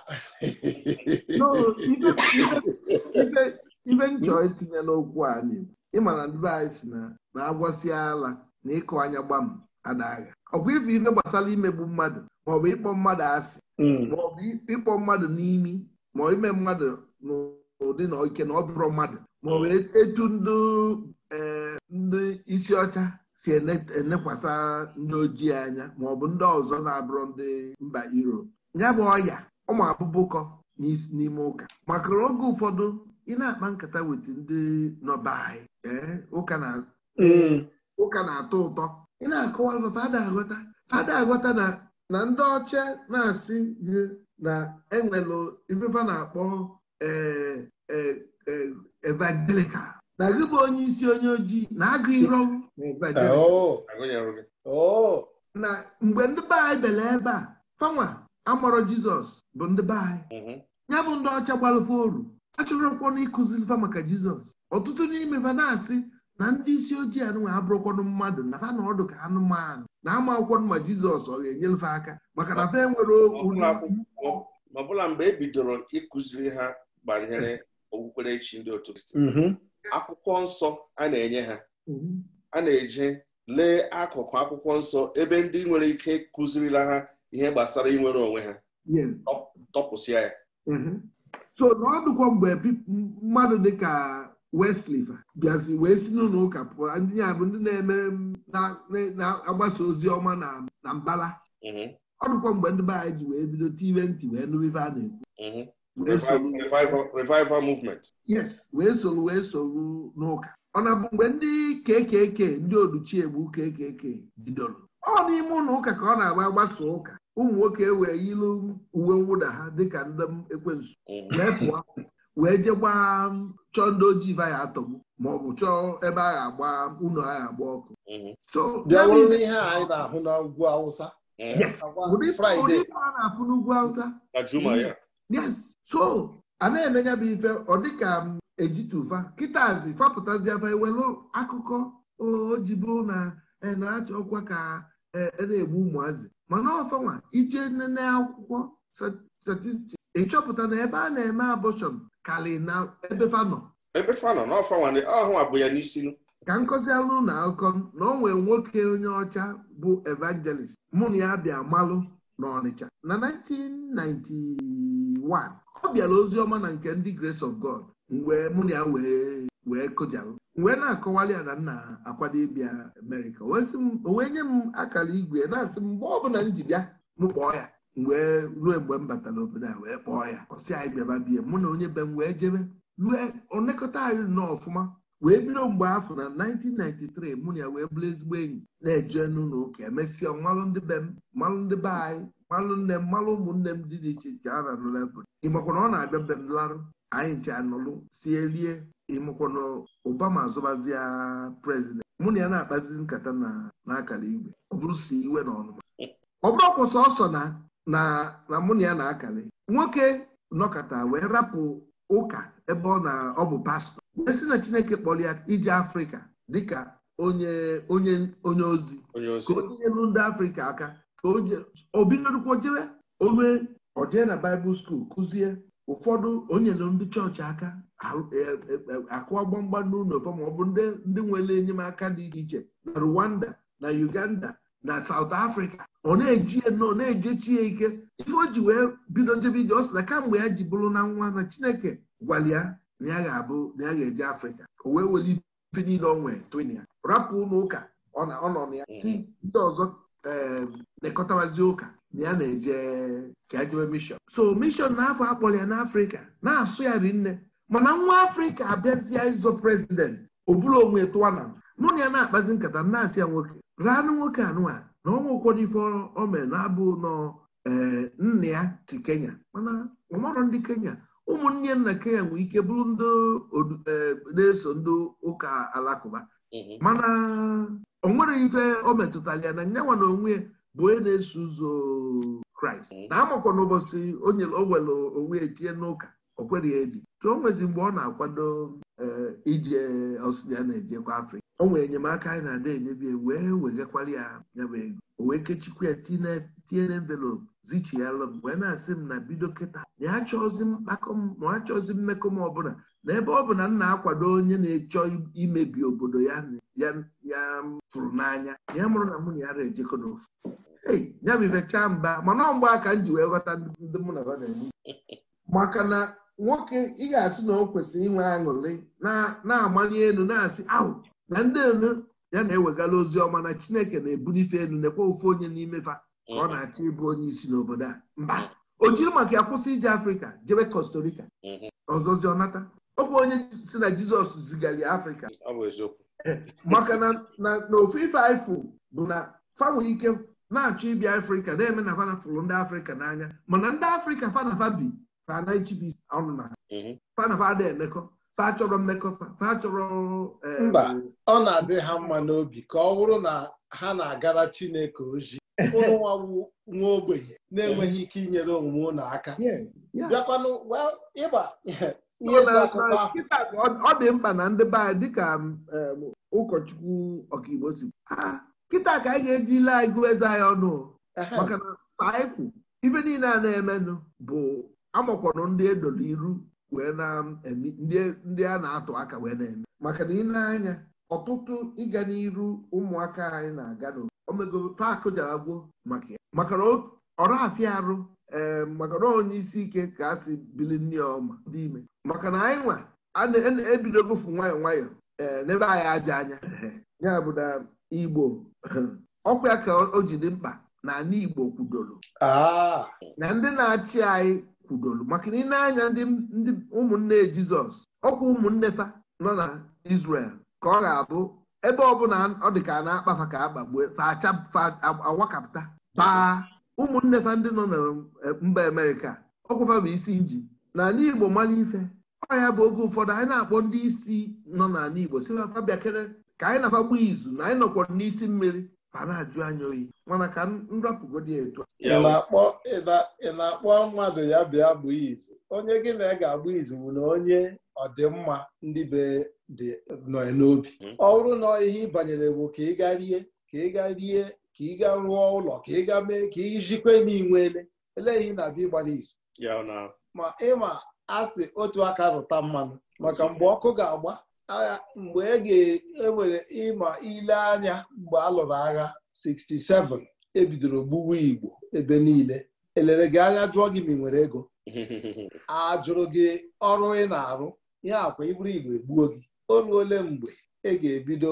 ibe nchọ itinye n'okwu a n'Igbo ịma na ndị anyị si na na-agwọsịa ala na ịkụ anya gbam adagha ọkwa ife ife gbasara imegbu mmadụ maọbụ ịkpọ mmadụ asị hmm. maọbụ ịkpọ mmadụ n'imi ma ime mmadụ n'ụdị na ike na ọ bụrụ mmadụ maọbụ e, etu ndị e, isi ọcha si enekwasa ndị ojii anya maọbụ ndị ọzọ na abụrọ ndị mba Europe ya bụ ọya ụmụ abụbụkọ n'ime ụka maka oge ụfọdụ ị na-akpa nkata weta ndị nọba anyị mm. ụka na-atọ ụtọ ị na-akọwa fada aghọta fada aghọta na ndị ọcha na-asị ihe na enwelụ ifefa na-akpọ e, e, e, evangelical na gị bụ onye isi onye ojii na-agụ iro ah, oh. oh. na mgbe ndị be ebe a fanwa Amọrọ jizọs bụ ndị be anyị mhm. ya bụ ndị ọcha gbalụfe oru achọrọkwanụ ịkụzilifa maka jizọs ọtụtụ n'ime fa na-asị na ndị isi ojii anụnwa abụrụkwanụ mmadụ na ha na ọdụ ka anụmanụ na ama akwụkwọ ma jizọs ọ ga-enyelfe aka maka na fa enwere okwu ma ọbụla mgbe e bidoro ịkụziri ha banyere okpukperechi ndị otu mhm. akwụkwọ nsọ a na-enye ha mhm. a na-eje lee akụkụ akwụkwọ nsọ ebe ndị nwere ike kụzirila ha ihe gbasara inwere onwe ha tọpụsịa ya mhm. so na mgbe mmadụ dịka Westlife bịazi wee si n'ụlọ ụka pụọ ndị ya bụ ndị na-eme na-agbasa ozi ọma na mbala mhm. ọ mgbe ndị be anyị ji wee bido tiwe ntị wee nụrụ ife a na-ekwu mhm. revival movement. yes wee soro wee soro n'ụka ọ na-abụ mgbe ndị kekeke ndị oduchiegbu kekeke bidoro ọ n'ime ụlọ ụka ka ọ na-agba agbasa ụka ụmụ nwoke e wee yilu uwe mwụda ha dịka ndị m ekwensu mm-hmm. wee pụọ wee jee gbaa um, chọọ ndị ojii vaya atọm ma ọ bụ chọọ ebe a ga-agba ụlọ a agba ọkụ mm-hmm. ihe anyị na-ahụ ugwu Awụsa mm-hmm. ụdị a na-afụ n'ugwu Awụsa yes so a na-eme ya bụ ife ọ dịka m um, ejituva kịtazi fapụtaziaba ewelu akụkọ o ji na e, na-achọ ọkwa ka e, na-egbu ụmụazị mana ọfọnwa ije nene akwụkwọ statistiks ịchọpụta na ebe a na-eme abọshọn karị na ebe fanọ ebe fanọ na ọhụwa ya n'isi ka nkọzialụ na akọ na ọ nwoke onye ọcha bụ evangelist mụ na ya bịa malụ n'Ọnịcha na 1991 ọ bịara ozi ọma na nke ndị Grace of God mgbe mụ na ya wee kụjalụ wee na-akọwali ya na nna akwado ịbịa Amerịka o wee nye m akara igwe na-asị m mgbe ọbụla m ji bịa m kpọọ ya wee ruo mgbe m batara obodo a wee kpọọ ya ọsị anyị bịaba bie mụ na onye be m wee jebe rue onekọta anyị nọ ọfụma wee bido mgbe afọ na 1993 mụ na ya wee bụrụ ezigbo enyi na-eje n'ụlọ ụka emesịa mmalụ ndị be m mmalụ ndị be anyị mmalụ nne m mmalụ ụmụnne m dị dị iche iche a na-anụ n'obodo ị na ọ na-abịa be m larụ anyị ji anọlụ si elie ịmụkwana Obama azụbazia prezident mụ na ya na-akpazi nkata na-akara igwe ọ bụrụ si iwe na ọnụma ọ bụrụ ọkwụ ọsọ na na mụ na ya na-akali nwoke nọkọta wee rapụ ụka ebe ọ na ọ bụ pastọ esi na Chineke kpọrọ ya ije Afrịka dịka onye onye onye ozi ka o tinyelu ndị Afrịka aka ka o bidorukwa jebe onwe ọ jee na Baịbụl skuul kụzie ụfọdụ onyelu ndị chọọchị aka e, e, e, akụọ gbamgba n'ụlọ ma ọ bụ ndị nwere enyemaka dị iche na Rwanda na Uganda na South afrịka ọ na-eji ọ na-ejechi ya ike ife o ji wee bido njebe ije ọ sị na kamgbe ya ji bụrụ na nwa na Chineke gwara ya na ya ga-abụ na ya ga-eje Afrịka o wee weli ife niile ọ nwee twin ya rapụ ụlọ ụka ọ nọ na ya si ndị ọzọ ee eh, ụka na ya na-eje ka ya e jebe mishọn so mishọn n'afọ akpọrọ ya n'afrịka na-asụ ya rinne mana nwa afrịka abịazia ịzọ prezidenti oburu onwe tụwana mụ na ya na-akpazi nkata na-asị ya nwoke ranụ nwoke anụa na ọnwa ụfọdụ ife omere na-abụ nọ eh, nna ya si kenya mana ọmarọ ndị kenya ụmụnne nna kenya nwee ike bụrụ ndị eh, na-eso ndị ụka alakụba mhm. mana o nwere ife o metụtara ya na nyanwa na onwe bụ onye na-eso ụzọ kraịst mm. na amakwa n'ụbọchị o were onwe etinye n'ụka o kwereghị ebi tụ nwezi mgbe ọ na-akwado e, ije ọsụya na-ejekwa afrịka o nwere enyemaka anyị na-ada enyebi wee wegakwara ya nyabụ ego o wee kechikwa ya tinye na envelopu zichiyalụ m wee na-asị m na bido kịta na ya chọọzi mkpakọ m ma mmekọ m ọbụla n'ebe ọ bụ na m na-akwado onye na-echọ imebi obodo ya ya fụrụ n'anya ya mụrụ na mụ na ya na-ejekọ n'ofu ei ya bụ ifechaa mba mana mgbe aka m ji wee ghọta ndị mụ na ha na-eme maka na nwoke ị ga-asị na o kwesịrị inwe aṅụrị na-amanye elu na-asị ahụ na ndị elu ya na-ewegala ozi ọma na Chineke na ebulife elu nekwa ofe onye n'ime fa ka ọ na-achọ ịbụ onye isi n'obodo a mba o jiri maka ya kwụsị ije Afrịka jebe Costa Rica mm-hmm. ọzọzi ọnata okwu onye si na jizọs zigara afrịka maka na n'ofu ife ifụ bụ na fa ike na-achọ ịbịa afrịka na-eme na fanafa fụrụ ndị afrịka n'anya mana ndị afrịka fanafa bi fanachibi ọnụ na mhm. fanafa ada emekọ fa chọrọ mmekọ fa eh, mba ọ na-adị ha mma n'obi ka ọ bụrụ na ha na-agara chineke ozi ụlọnwa nwa ogbenye na-enweghị ike inyere omume ụlọ aka bịakwanụ ịgba. ọ dị mkpa na ndị be anyị dịka um, um, ụkọchukwu ọkaigbo si kịta ka anyị ga-eji ile eze anyị ọnụ maka na anyị kwu ife niile a na-emenụ bụ amakwọrọ ndị edoro iru wee um, ndị a na-atụ aka wee na-eme maka na ile anya ọtụtụ ịga n'iru ụmụaka anyị na-aga n'obodo omego paakụ jara gwuo maka ya maka na ọrafịa arụ ee maka na onye isi ike ka a si bili ya ọma dị ime maka na anyị nwa ebidogofu e nwayọọ nwayọ ee n'ebe anyị aja anya ya bụ na igbo ọkwa ya ka o ji dị mkpa na ala igbo kwudoro ah! na ndị na-achị anyị kwudoro maka na ị anya ndị ụmụnne jizọs ọkwa ụmụnne ta nọ na isrel ka ọ ga-abụ ebe ọ ọ dị ka na-akpafa ka akpagbuo fa awakapụta baa ụmụnne fa ndị nọ na eh, mba amerịka ọkwụfa bụ isi nji n'ala igbo mara ife ọhịa bụ oge ụfọdụ anyị na-akpọ ndị isi nọ n'ala igbo si bịakere ka anyị na-afagbu izu na anyị nọkwa n'isi mmiri ma na-ajụ anya oyi mana ka nrapụgodi etu ị na-akpọ mmadụ ya bịa bụ izu onye gị na ga-agba izu bụ na onye ọdịmma ndị be dị nọ n'obi hmm. ọ bụrụ na ihe ị banyere bụ ka ị ga rie ka ị ga rie ka ị ga rụọ ụlọ ka ị ga mee ka ị jikwe na inwele eleghị na-abịa gbara izu ma ịma asị otu aka rụta mmanụ maka mgbe ọkụ ga-agba agha mgbe e ga-ewere e ịma ile anya mgbe a lụrụ agha 67 ebidoro gbuwa igbo ebe niile elere gị anya jụọ gị ma ị nwere ego a jụrụ gị ọrụ ị na-arụ ihe akwa iburu igbo egbuo gị o mgbe e ga-ebido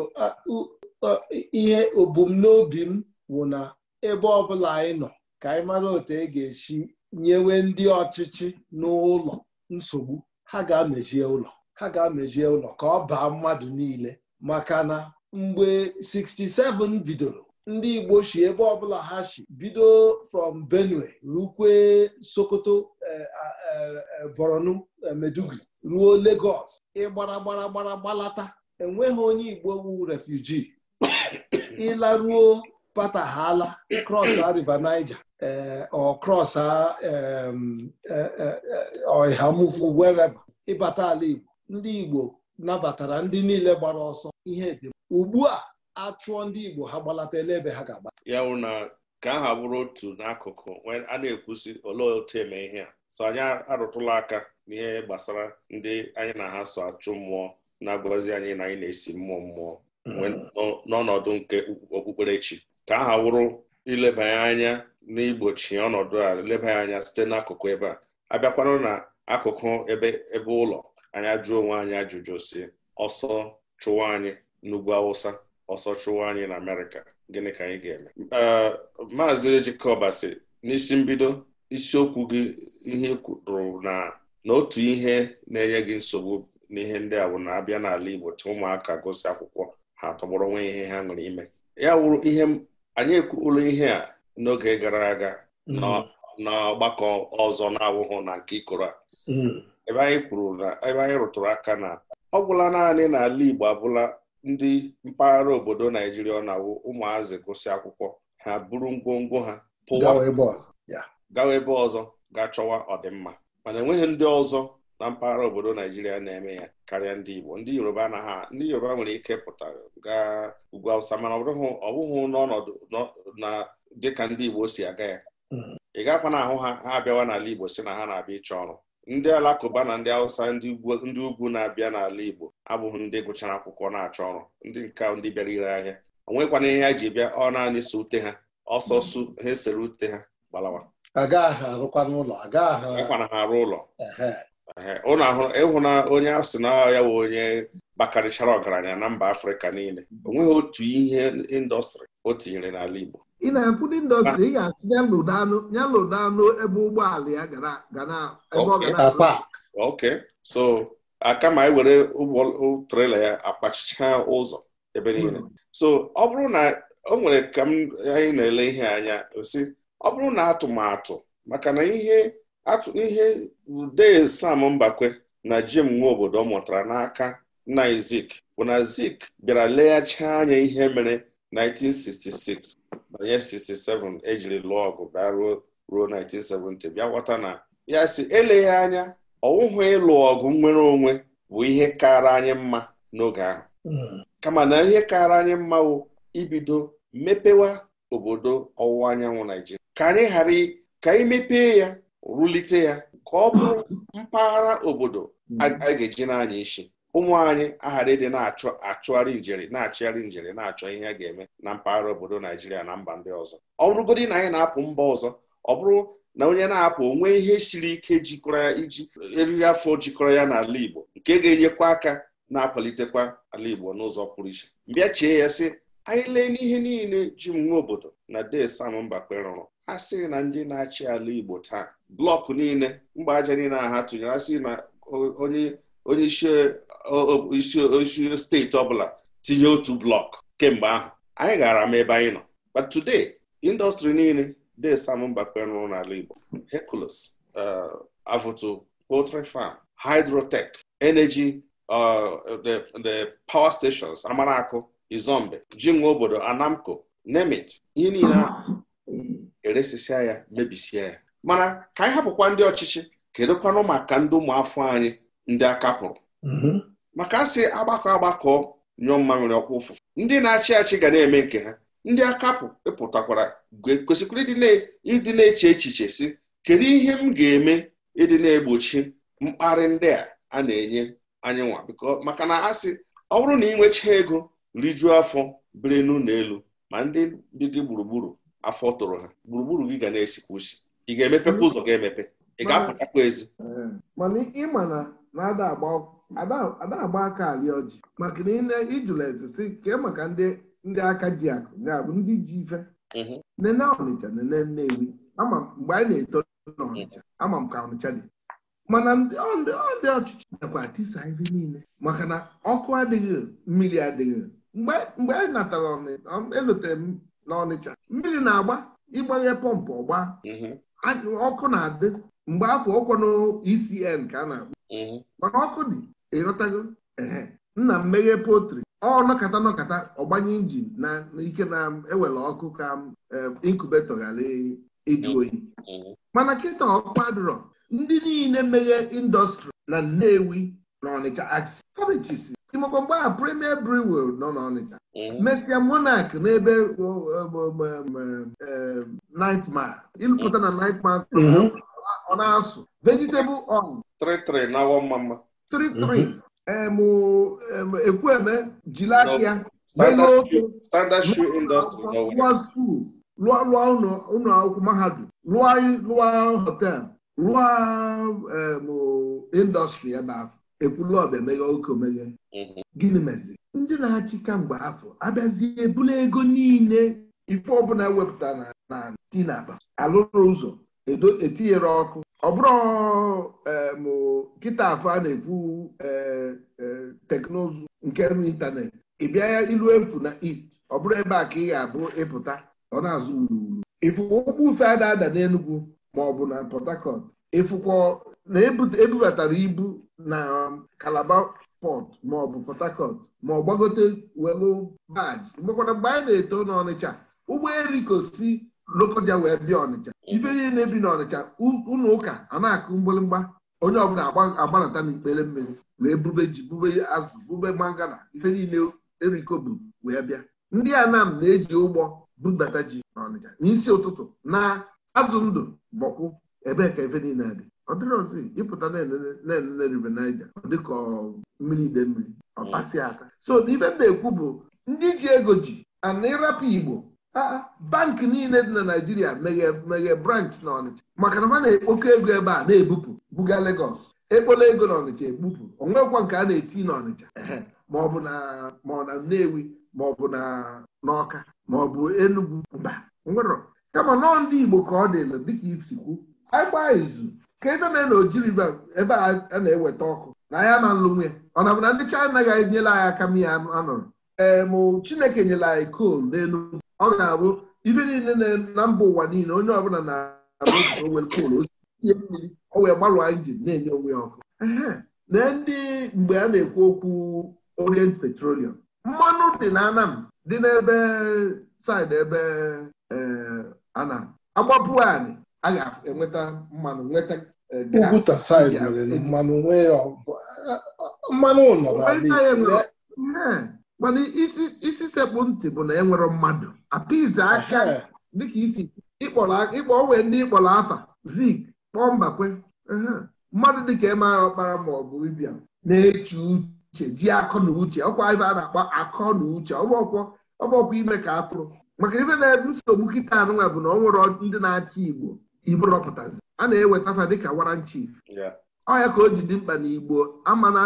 ihe obumnobi m wụ na ebe ọbụla anyị nọ ka anyị mara otu e ga-esi nyewe ndị ọchịchị n'ụlọ nsogbu ha ga-amejie ụlọ ha ga-amejie ụlọ ka ọ baa mmadụ niile maka na mgbe 67 bidoro ndị Igbo si ebe ọbụla ha shi bido from Benue rukwe Sokoto eh, eh, eh, Borno Meduguri ruo Lagos ịgbara gbara gbara gbalata enweghị onye Igbo wu refuji ịlaruo patahala krọsa e river Niger ọ krọsa ọhamufu wereba ịbata e ala Igbo ndị Igbo nabatara ndị niile gbara ọsọ ihe dị ugbu a achụọ ndị Igbo ha gbalatala ebe ha ga-agba ya wụ na ka ha bụrụ otu n'akụkụ a na-ekwusi olee otu eme ihe a so anyị arụtụla aka n'ihe gbasara ndị anyị na ha so achụ mmụọ na-agọzi anyị na anyị na-esi mmụọ mmụọ mhm. n'ọnọdụ nke okpukperechi ka aha wụrụ ilebanye anya n'igbochi ọnọdụ a ya anya site n'akụkụ ebe a abịakwanụ na akụkụ ebe ebe ụlọ anyị ajụọ onwe anyị ajụjụ si ọsọ chụwa anyị n'ugwu awụsa ọsọ chụwa anyị na amerịka gịnị ka anyị ga-eme maazị ejikọbasi n'isi mbido isiokwu gị ihe e kwuru na na otu ihe na-enye gị nsogbu n'ihe ndị a bụ na abịa n'ala igbo ụmụaka gosi akwụkwọ ha tọgbọrọ nwe ihe ha nwere ime ya wụrụ ihe anyị ekwuola ihe a n'oge gara aga n'ọgbakọ hmm. ọzọ na-awụghụ na nke ikoro a hmm. ebe anyị kwuru na ebe anyị rụtụrụ aka na ọ gwụla naanị n'ala Igbo abụla ndị mpaghara obodo Naijiria ọ na-awụ ụmụazị gụsị akwụkwọ ha buru ngwongwo ha pụwa gawa ebe ọzọ ga chọwa ọdịmma mana enweghị ndị ọzọ na mpaghara obodo Naijiria na-eme ya karịa ndị Igbo ndị Yoruba na ha ndị Yoruba nwere ike pụta gaa ugwu Awụsa mana ọ bụghị n'ọnọdụ na dịka ndị Igbo si aga ya hmm. ị gakwa na ahụ ha ha abịawa n'ala Igbo si na ha na-abịa ịchọ ọrụ ndị alakụba na ndị Awụsa ndị ugwu na-abịa n'ala Igbo abụghị ndị gụchara akwụkwọ na-achọ ọrụ ndị nke ndị bịara ire ahịa o nwekwana ihe ha ji bịa ọ naanị so ute ha ọsọsọ ha esere ute ha gbalawa ha arụ ụlọ ụnụ ịhụ na onye asị na ya wụ onye bakarịchara ọgaranya na mba afrịka niile onweghị otu ihe indọstrị o tinyere n'ala igbo ị na-ekwu ndị indọstrị ị ga-asị ya lụdanụ ebe ụgbọala ya ok so akama ewere ụgbọ trela ya akpachicha ụzọ ebe niile hmm. so ọ bụrụ na o nwere ka m anyị na-ele ihe anya osi ọ bụrụ na atụmatụ maka na ihe atụ ihe dee sam mbakwe na jim nwa obodo mụtara n'aka nna zik bụ na zik bịara leghachi anya ihe mere 1966 banye 67 ejiri lụọ ọgụ bịa ruo ruo 1970 bịa ghọta na ya si eleghị anya ọwụhụ ịlụ ọgụ nwere onwe bụ ihe kara anyị mma n'oge ahụ hmm. kama na ihe kara anyị mma wụ ibido mepewa obodo ọwụwa anyanwụ Naijiria ka anyị ghara ka anyị mepee ya rụlite ya ka ọ bụrụ mpaghara obodo a ga-eji n'anya isi ụmụ anyị aghara ịdị na-achọ achụgharị njere na-achịgharị njere na-achọ ihe a ga-eme na mpaghara obodo Naijiria na mba ndị ọzọ ọ bụrụgodị na anyị na-apụ mba ọzọ ọ bụrụ na onye na-apụ onwe ihe siri ike jikọrọ ya iji eriri afọ jikọrọ ya n'ala Igbo nke ga-enyekwa aka na-akwalitekwa ala Igbo n'ụzọ pụrụ iche bịa chee ya sị anyị lee n'ihe niile ji m nwe obodo na de Sam Mbakwe rụrụ a sị na ndị na-achị ala Igbo taa blọkụ niile mgbe aja niile a ha tụnyere asị na onye isi isi steeti ọbụla tinye otu blọkụ kemgbe ahụ anyị gara m ebe anyị nọ but today industry niile de Sam mba kpenrụ n'ala Igbo Hercules uh, avụtu poultry farm hydrotech energy uh, the the power stations Amaraku Izombe jinwe obodo Anamco nemit ihe niile ahụ eresisia ya mebisia ya mana ka anyị hapụkwa ndị ọchịchị kedụkwanụ maka ndị ụmụafọ anyị ndị aka pụrụ mhm. maka asị agbakọ agbakọ nyụọ mma nwere ọkwa ụfụfụ ndị na-achị achị ga na-eme nke ha ndị akapụ ịpụtakwara e kwesịkwara ịdị na-eche echiche si kedu ihe m ga-eme ịdị na-egbochi mkparị ndị a a na-enye anyị nwa biko maka na asị ọ bụrụ na ị nwechaa ego rijuo afọ biri n'ụlọ elu ma ndị dị gị gburugburu afọ tụrụ ha gburugburu gị ga na-esikwa usi ị ga-emepekwa ụzọ ga-emepe ị ga-apụtakwa ezi eh, mana ịma na na-ada agba aka alị ọjị maka na ijụla eze si kee maka ndị aka ji akụ ya bụ ndị ji ife mhm. nene ọnịcha nene nnewi ama mgbe anyị na-eto n'ọnịcha mhm. ama m ka ọnịcha dị mana ndị ndị ọchịchị nakwa atisa ife niile maka na ọkụ adịghị mmiri adịghị mgbe anyị natara elotere m n'ọnịcha mmiri na-agba ịgbanye pọmpụ ọgba mhm. ọkụ na-adị mgbe afọ na ecn ka a na abụ mhm. mana ọkụ dị ịghọtago ehe nna m meghe potri ọ nọkata nọkata ọgbanye injin na ike na-ewere ọkụ ka inkubeto ghara ịjụ mhm. oyi mana kịta ọkụ adịrọ ndị niile meghe indọstrị na Nnewi na Ọnịcha aksi ịmakwa mgbe a premier brewer nọ n'Ọnịcha mm-hmm. mesia monarch n'ebe um, nightmare ịlụpụta na nightmare mm-hmm. ọ na-asụ vegetable on 33 mma jiri aka ya lụọ skuul lụọ ụlọ akwụkwọ mahadum lụọ hotel lụọ um, indọstrị ebe ahụ ekwulu ọba emeghe oke omeghe mhm. gịnị mezi ndị na-achị kamgbe afọ abịazie ebula ego niile ife ọbụla wepụta na na ti na alụrụ ụzọ etinyere ọkụ ọ bụrụ kịta afọ a na-ekwu eh, eh, teknụzụ nke ịntanetị ị bịa ya ilu efu na east ọ bụrụ ebe a ka ị ga-abụ ịpụta ọ na-azụ wuruwuru ịfụkwa ụgbọ ufe a na-ada n'Enugwu ma ọ bụ na Port Harcourt ịfụkwa na ebubatara ibu na um, Calabar port maọbụ Port ma ọ gbagote welu baji mgbekwara mgbe anyị na-eto n'Ọnịcha ụgbọ ụgbọelikosi Lokoja wee bịa Ọnịcha ife niile bi n'Ọnịcha ụlọ ụka a na-akụ mgbịrịmgba onye ọbụla agbanata n'ikpere mmiri wee bube ji bube azụ bube mangana ife niile eriko bu wee bịa ndị Anam na-eji ụgbọ bubata ji n'Ọnịcha n'isi ụtụtụ na azụ ndụ bọkwụ ebee ka ife niile dị ọ dịrọzi ịpụta na-elele rive Naija dịka mmiri ide mmiri ọ ata so n'ibe m na-ekwu bụ ndị ji ego ji ana ịrapụ Igbo bankị niile dị na naijiria meghe branch na Ọnịcha maka na ha na-ekpokọ ego ebe a na-ebupụ buga legos ekpola ego na Ọnịcha ekpupụ onwekwa nke a na-eti na Ọnịcha ma ọ bụ na ma ọ na Nnewi ma ọ bụ na n'Ọka ma ọ bụ Enugu mba nwerọ kama nọọ ndị Igbo ka ọ dịla dịka isikwu agba izu ka ebe mee na ojiribe ebe a na-eweta ọkụ na ya ma nlụ ya ọ na bụ na ndị chaina anaghị enyela anyị aka m ya anọrọ ee mụ Chineke nyere anyị kol n'elu ọ ga-abụ ibe niile na mba ụwa niile onye ọbụla na-abụ kol oie mmiri o wee gbarụọ injin na-enye onwe ya ọkụ na ndị mgbe a na-ekwu okwu Orient Petroleum mmanụ dị na Anam dị n'ebe saịdị ebe Anam agbapụ anyị a ga-enweta mmanụ nweta e, nwere e, mmanụ e, mana isi sekpụ ntị bụ na enwere mmadụ apize aka dịka isi ịkpọ wee ndị ịkpọrọ afa zik kpọọ mbakwe mmadụ dịka ịmara ọkpara ma ọ bụ ibia na-eche uche ji akọ na uche ọkwa ibe a na-akpọ akọ na uche ọgbọkwọ ime ka atụrụ maka ife na-ebu nsogbu kịta anụnwa bụ na ọ nwere ndị na-achị Igbo Igbo rọpụtazi a na-eweta fa dịka waranchi. chief ka o ji dị mkpa n'igbo Igbo amana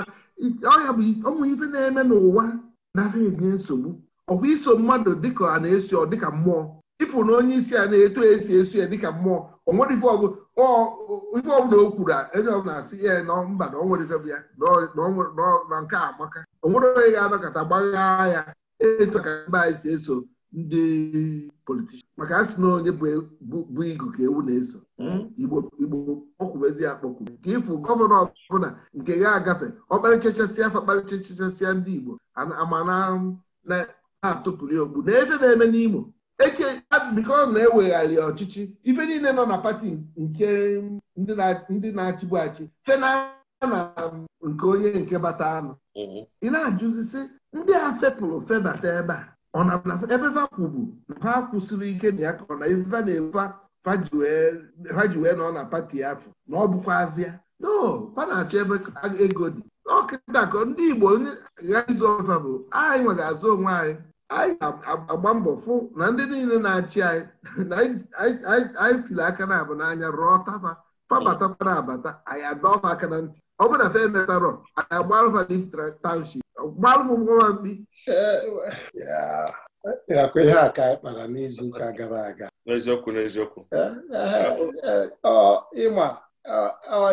ọya bụ ọnwụ ife na-eme n'ụwa nafa enye nsogbu bụ iso mmadụ dịka a na-esi ọ dịka mmụọ ịfụ na onye isi a na-eto esi esu ya dịka mmụọ o nwere ife ọbụla o kwuru enye ọbụla asị ya na mba na onwere ife ya na nke amaka o nwere onye ga-anọkọta gbaghaa ya etu ka mba anyị si eso ndị politishan maka asị na onye e-, bụ igu ka ewu na-eso hmm? igbo igbo ọkwụbezi ya akpọkwu ka ịfụ gọvanọ ọbụla nke ga-agafe ọkparịchachasịa afa kparịchachasịa ndị igbo ama na-atụpụrụ ya okpu na ebe na-eme n'Imo eche biko na-ewegharị ọchịchị ife niile nọ na pati nke ndị na-achịbu achị fena na nke onye nke bata anụ mm-hmm. ị na-ajụzi sị ndị a fepụrụ febata ebe a ọ na ebe ha kwubu ha kwụsịrị ike na ya ka ọ na iva na-efa ha ji wee nọ na pati afọ na ọ bụkwazịa no pa na-achọ ebe ego dị ọkịta ka ndị Igbo ịzụ ọfa bụ anyị nwere azụ onwe anyị anyị agba mbọ fụ na ndị niile na-achị anyị anyị fili aka na abụ n'anya rụọ tafa fabatakwana abata anyị adọfa aka na ntị ọ bụ na fe emetarọ gbalụmgwambi akwa ihe a ka anyị kpara n'izuụka gara aga n'eziokwu n'eziokwu ịma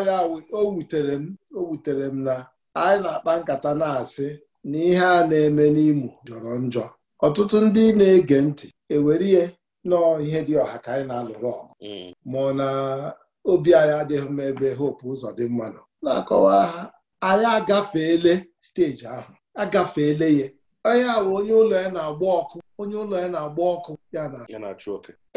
ya o wutere m o wutere m na anyị na-akpa nkata na-asị na ihe a na-eme n'Imo jọrọ njọ ọtụtụ ndị na-ege ntị ewere ihe nọọ ihe dị ọha ka anyị na-alụrụ ọgụ ma ọ na obi anyị adịghị m ebe hope ụzọ dị mma nọ na-akọwa ha anyị agafeele steji ahụ agafeele ya onye awụ onye ụlọ ya na-agba ọkụ onye ụlọ ya na-agba ọkụ ya na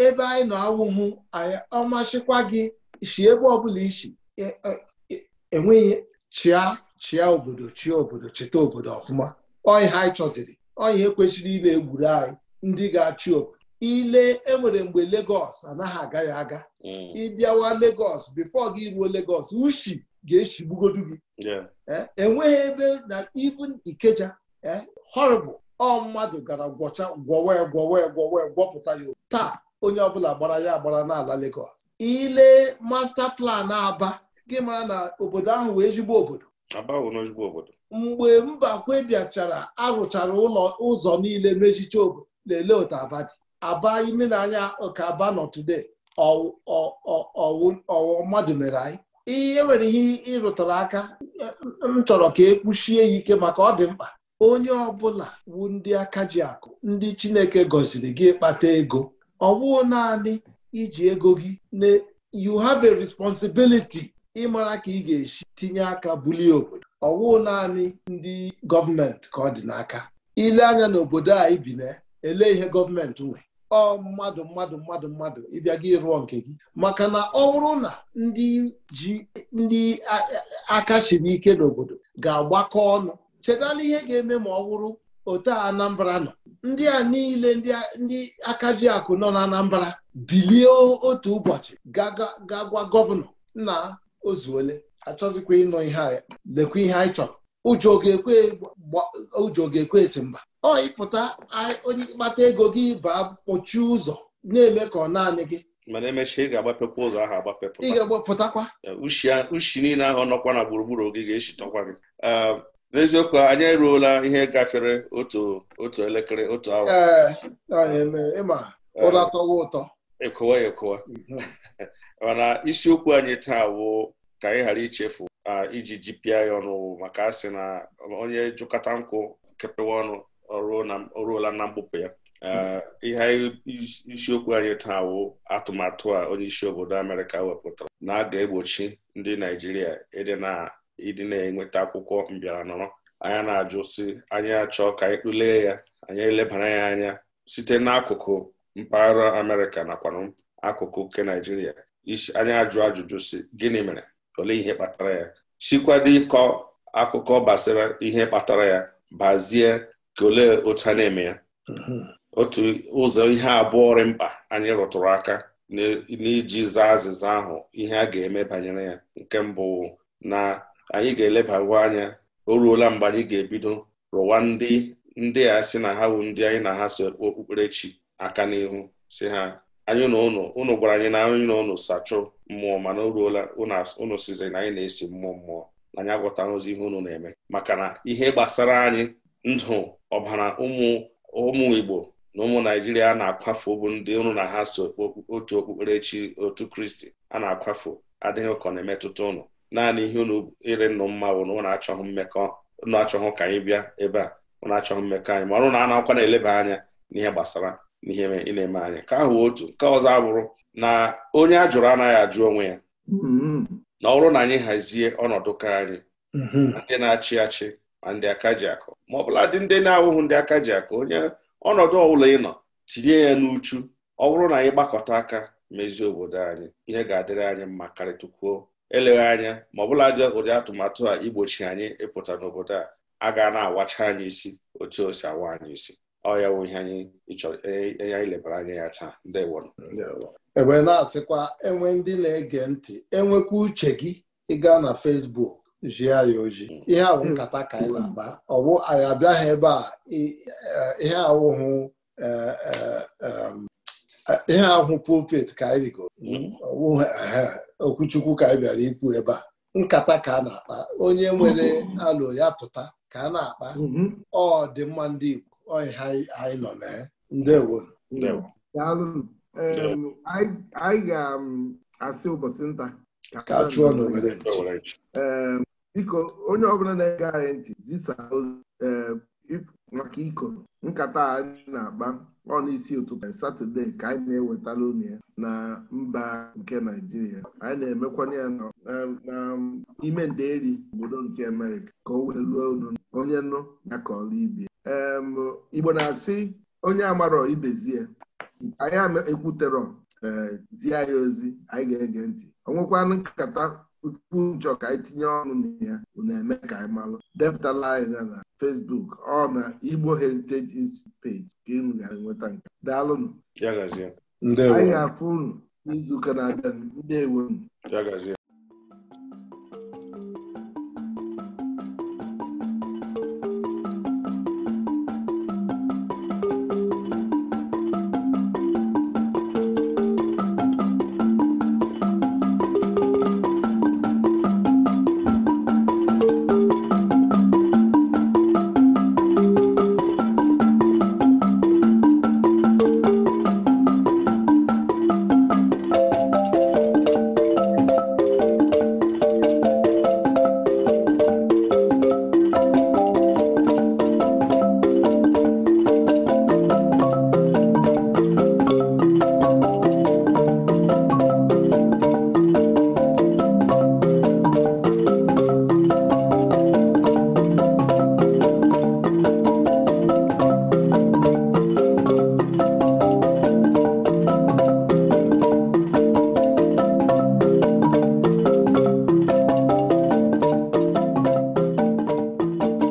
ebe anyị nọ awụhụ anyị ọmachịkwa gị si ebe ọbụla isi e, e, e, enweghị chịa chịa obodo chịa obodo cheta obodo ọfụma ọyị ha anyị chọziri ọyị ekwechiri ile egwuru anyị ndị ga-achị obodo ile enwere mgbe Lagos anaghị agaghị aga mm. ịbịawa Lagos bifo gị ruo Lagos ushi ga-echigbugodu gị enweghị ebe na even ikeja horrible ọ mmadụ gara gwọcha gwọwe gwọwe gwọwe gwọpụta ya taa onye ọbụla gbara ya agbara n'ala Lagos ile masta plan aba gị mara na obodo ahụ wee ezigbo obodo mgbe mba kwebiachara arụchara ụlọ ụzọ niile mechicha obodo lelee otu aba dị aba imenanya ka aba nọ today ọwụ mmadụ mere anyị ihe nwere ihe ịrụtara aka m chọrọ ka e kpuchie ya ike maka ọ dị mkpa onye ọ bụla bụ ndị aka ji akụ ndị Chineke gọziri gị kpata ego ọ naanị iji ego gị na you have a responsibility ịmara ka ị ga-esi tinye aka bulie obodo ọ naanị ndị gọọmenti ka ọ dị n'aka ile anya n'obodo a ibi na ele ihe gọọmenti nwe ọ mmadụ mmadụ mmadụ mmadụ ịbịa gị rụọ nke gị maka na ọ bụrụ na ndị ji ndị aka chiri ike n'obodo ga-agbakọ ọnụ chetala ihe ga-eme ma ọ bụrụ ote Anambra nọ ndị a niile ndị aka ji akụ nọ n'anambra bilie otu ụbọchị ga gwa gọvanọ na ozuole achọzikwa ịnọ ihe lekwa ihe anyị chọrọ ụjọ ga-ekwe esi mba ọyịpụta onye ịkpata ego gị baa kpọchie ụzọ na-eme ka ọ naanị gị mana emechaa ị ga-agbapekwa ụzọ ahụ agbapepụta ị ga-agbapụtakwa ushi niile ahụ nọkwa na gburugburu gị ga-eshitọkwa gị n'eziokwu anyị eruola ihe gafere otu otu elekere otu awa ịma ụra tọwa ụtọ ekowa ekowa mhm. mana isiokwu anyị taa bụ ka anyị ghara ichefu iji GPI ọnụ maka asị na onye jụkọta nkụ kepewa ọnụ ọ ruola na mgbupụ ya ihe isiokwu anyị taa wụ atụmatụ a onye isi obodo Amerịka wepụtara na a ga-egbochi ndị Naijiria ịdị na-enweta akwụkwọ mbịara nọrọ anya na-ajụ si anyị achọ ka anyị kpụlee ya anyị elebara ya anya site n'akụkụ mpaghara Amerịka nakwa akụkụ nke Naijiria anyị ajụ ajụjụ si gịnị mere olee ihe kpatara ya sikwado ịkọ akụkọ gbasara ihe kpatara ya bazie ka olee otu a na-eme ya mhm. otu ụzọ ihe abụọ dị mkpa anyị rụtụrụ aka n'iji zaa azịza ahụ ihe a ga-eme banyere ya nke mbụ na anyị ga-elebawa anya o ruola mgbe anyị ga-ebido rụwa ndị ndị a sị na ha wu ndị anyị na ha so okpukperechi aka n'ihu si ha anyị na ụnụ ụnụ gwara anyị na anyị na ụnụ sachụ mmụọ mana o ruola ụnụ sizi na anyị na-esi mmụọ mmụọ na anyị agwọtaghịzi ihe ụnụ na-eme maka na ihe gbasara anyị ndụ ọbara ụmụ ụmụ Igbo na ụmụ Naijiria na-akwafu bụ ndị ụrụ na ha so otu okpukperechi otu Kristi a na-akwafu adịghị ụkọ na-emetụta ụnụ naanị ihe ụnụ ire nnụ mma bụ na ụnụ achọghị mmekọ ụnụ achọghị ka anyị bịa ebe a ụnụ achọghị mmekọ anyị ma ọrụ na anaghịkwa na-eleba anya n'ihe gbasara n'ihe ị na-eme anya ka ahụ otu nke ọzọ abụrụ na onye a jụrụ anaghị ajụ onwe ya mm-hmm. na ọ bụrụ na anyị hazie ọnọdụ ka anyị mm-hmm. ndị na-achị achị and ndị aka ji akụ ma ọbụladị ndị na-awụghị ndị aka ji akụ onye ọnọdụ ọbụla ị nọ tinye ya n'uchu ọ bụrụ na anyị gbakọta aka mezie obodo anyị ihe ga-adịrị anyị mma karịtụkwuo eleghị anya ma ọbụladị ụdị atụmatụ a igbochi anyị ịpụta n'obodo a a ga na-awacha anyị isi otu o si awa anyị isi ọ ya bụ ihe anyị e, e, anyị lebara anya ya taa ndewo ebe na-asịkwa enwe ndị na-ege ntị enwekwa uche gị ịga na fesbuk. jia ya oji ihe awụ hmm. nkata ka anyị na-agba ọwụ anyị abịaghị ebe a eh, ihe awụhụ eh, eh, um, ihe ahụ pulpit ka anyị rigo hmm. okwuchukwu ka anyị bịara ikwu ebe a nkata ka a na-akpa onye nwere alụ ya tụta ka a na-akpa hmm. ọ dị mma ndị Igbo ọyị ha anyị nọ na ya ndewo anyị ga-asị ụbọchị nta ka chụọ n'obodo biko onye ọbụla na-ege anyị ntị zisa eh, maka ikoro nkata anyị na-akpa ọ n'isi ụtụtụ satọde ka anyị na-ewetara unu ya na mba nke naijiria anyị na-emekwana ya n'ime eh, um, nderi obodo nke amerịka ka o wee ruo unu onye nụ ya ka ọla ibie igbo na-asị onye amarọ ibezie anyị ekwuterọ eh, zie ya ozi anyị ga-ege ntị ọ nwekwana nkata mkpu njọ ka anyị tinye ọnụ na ya na-eme ka anyị malụ depụtala anyị na na Facebook ọ na Igbo Heritage Institute page ka ị gara nweta nke daalụnụ anyị ga-afụ unu n'izuụka na-abịa ndewo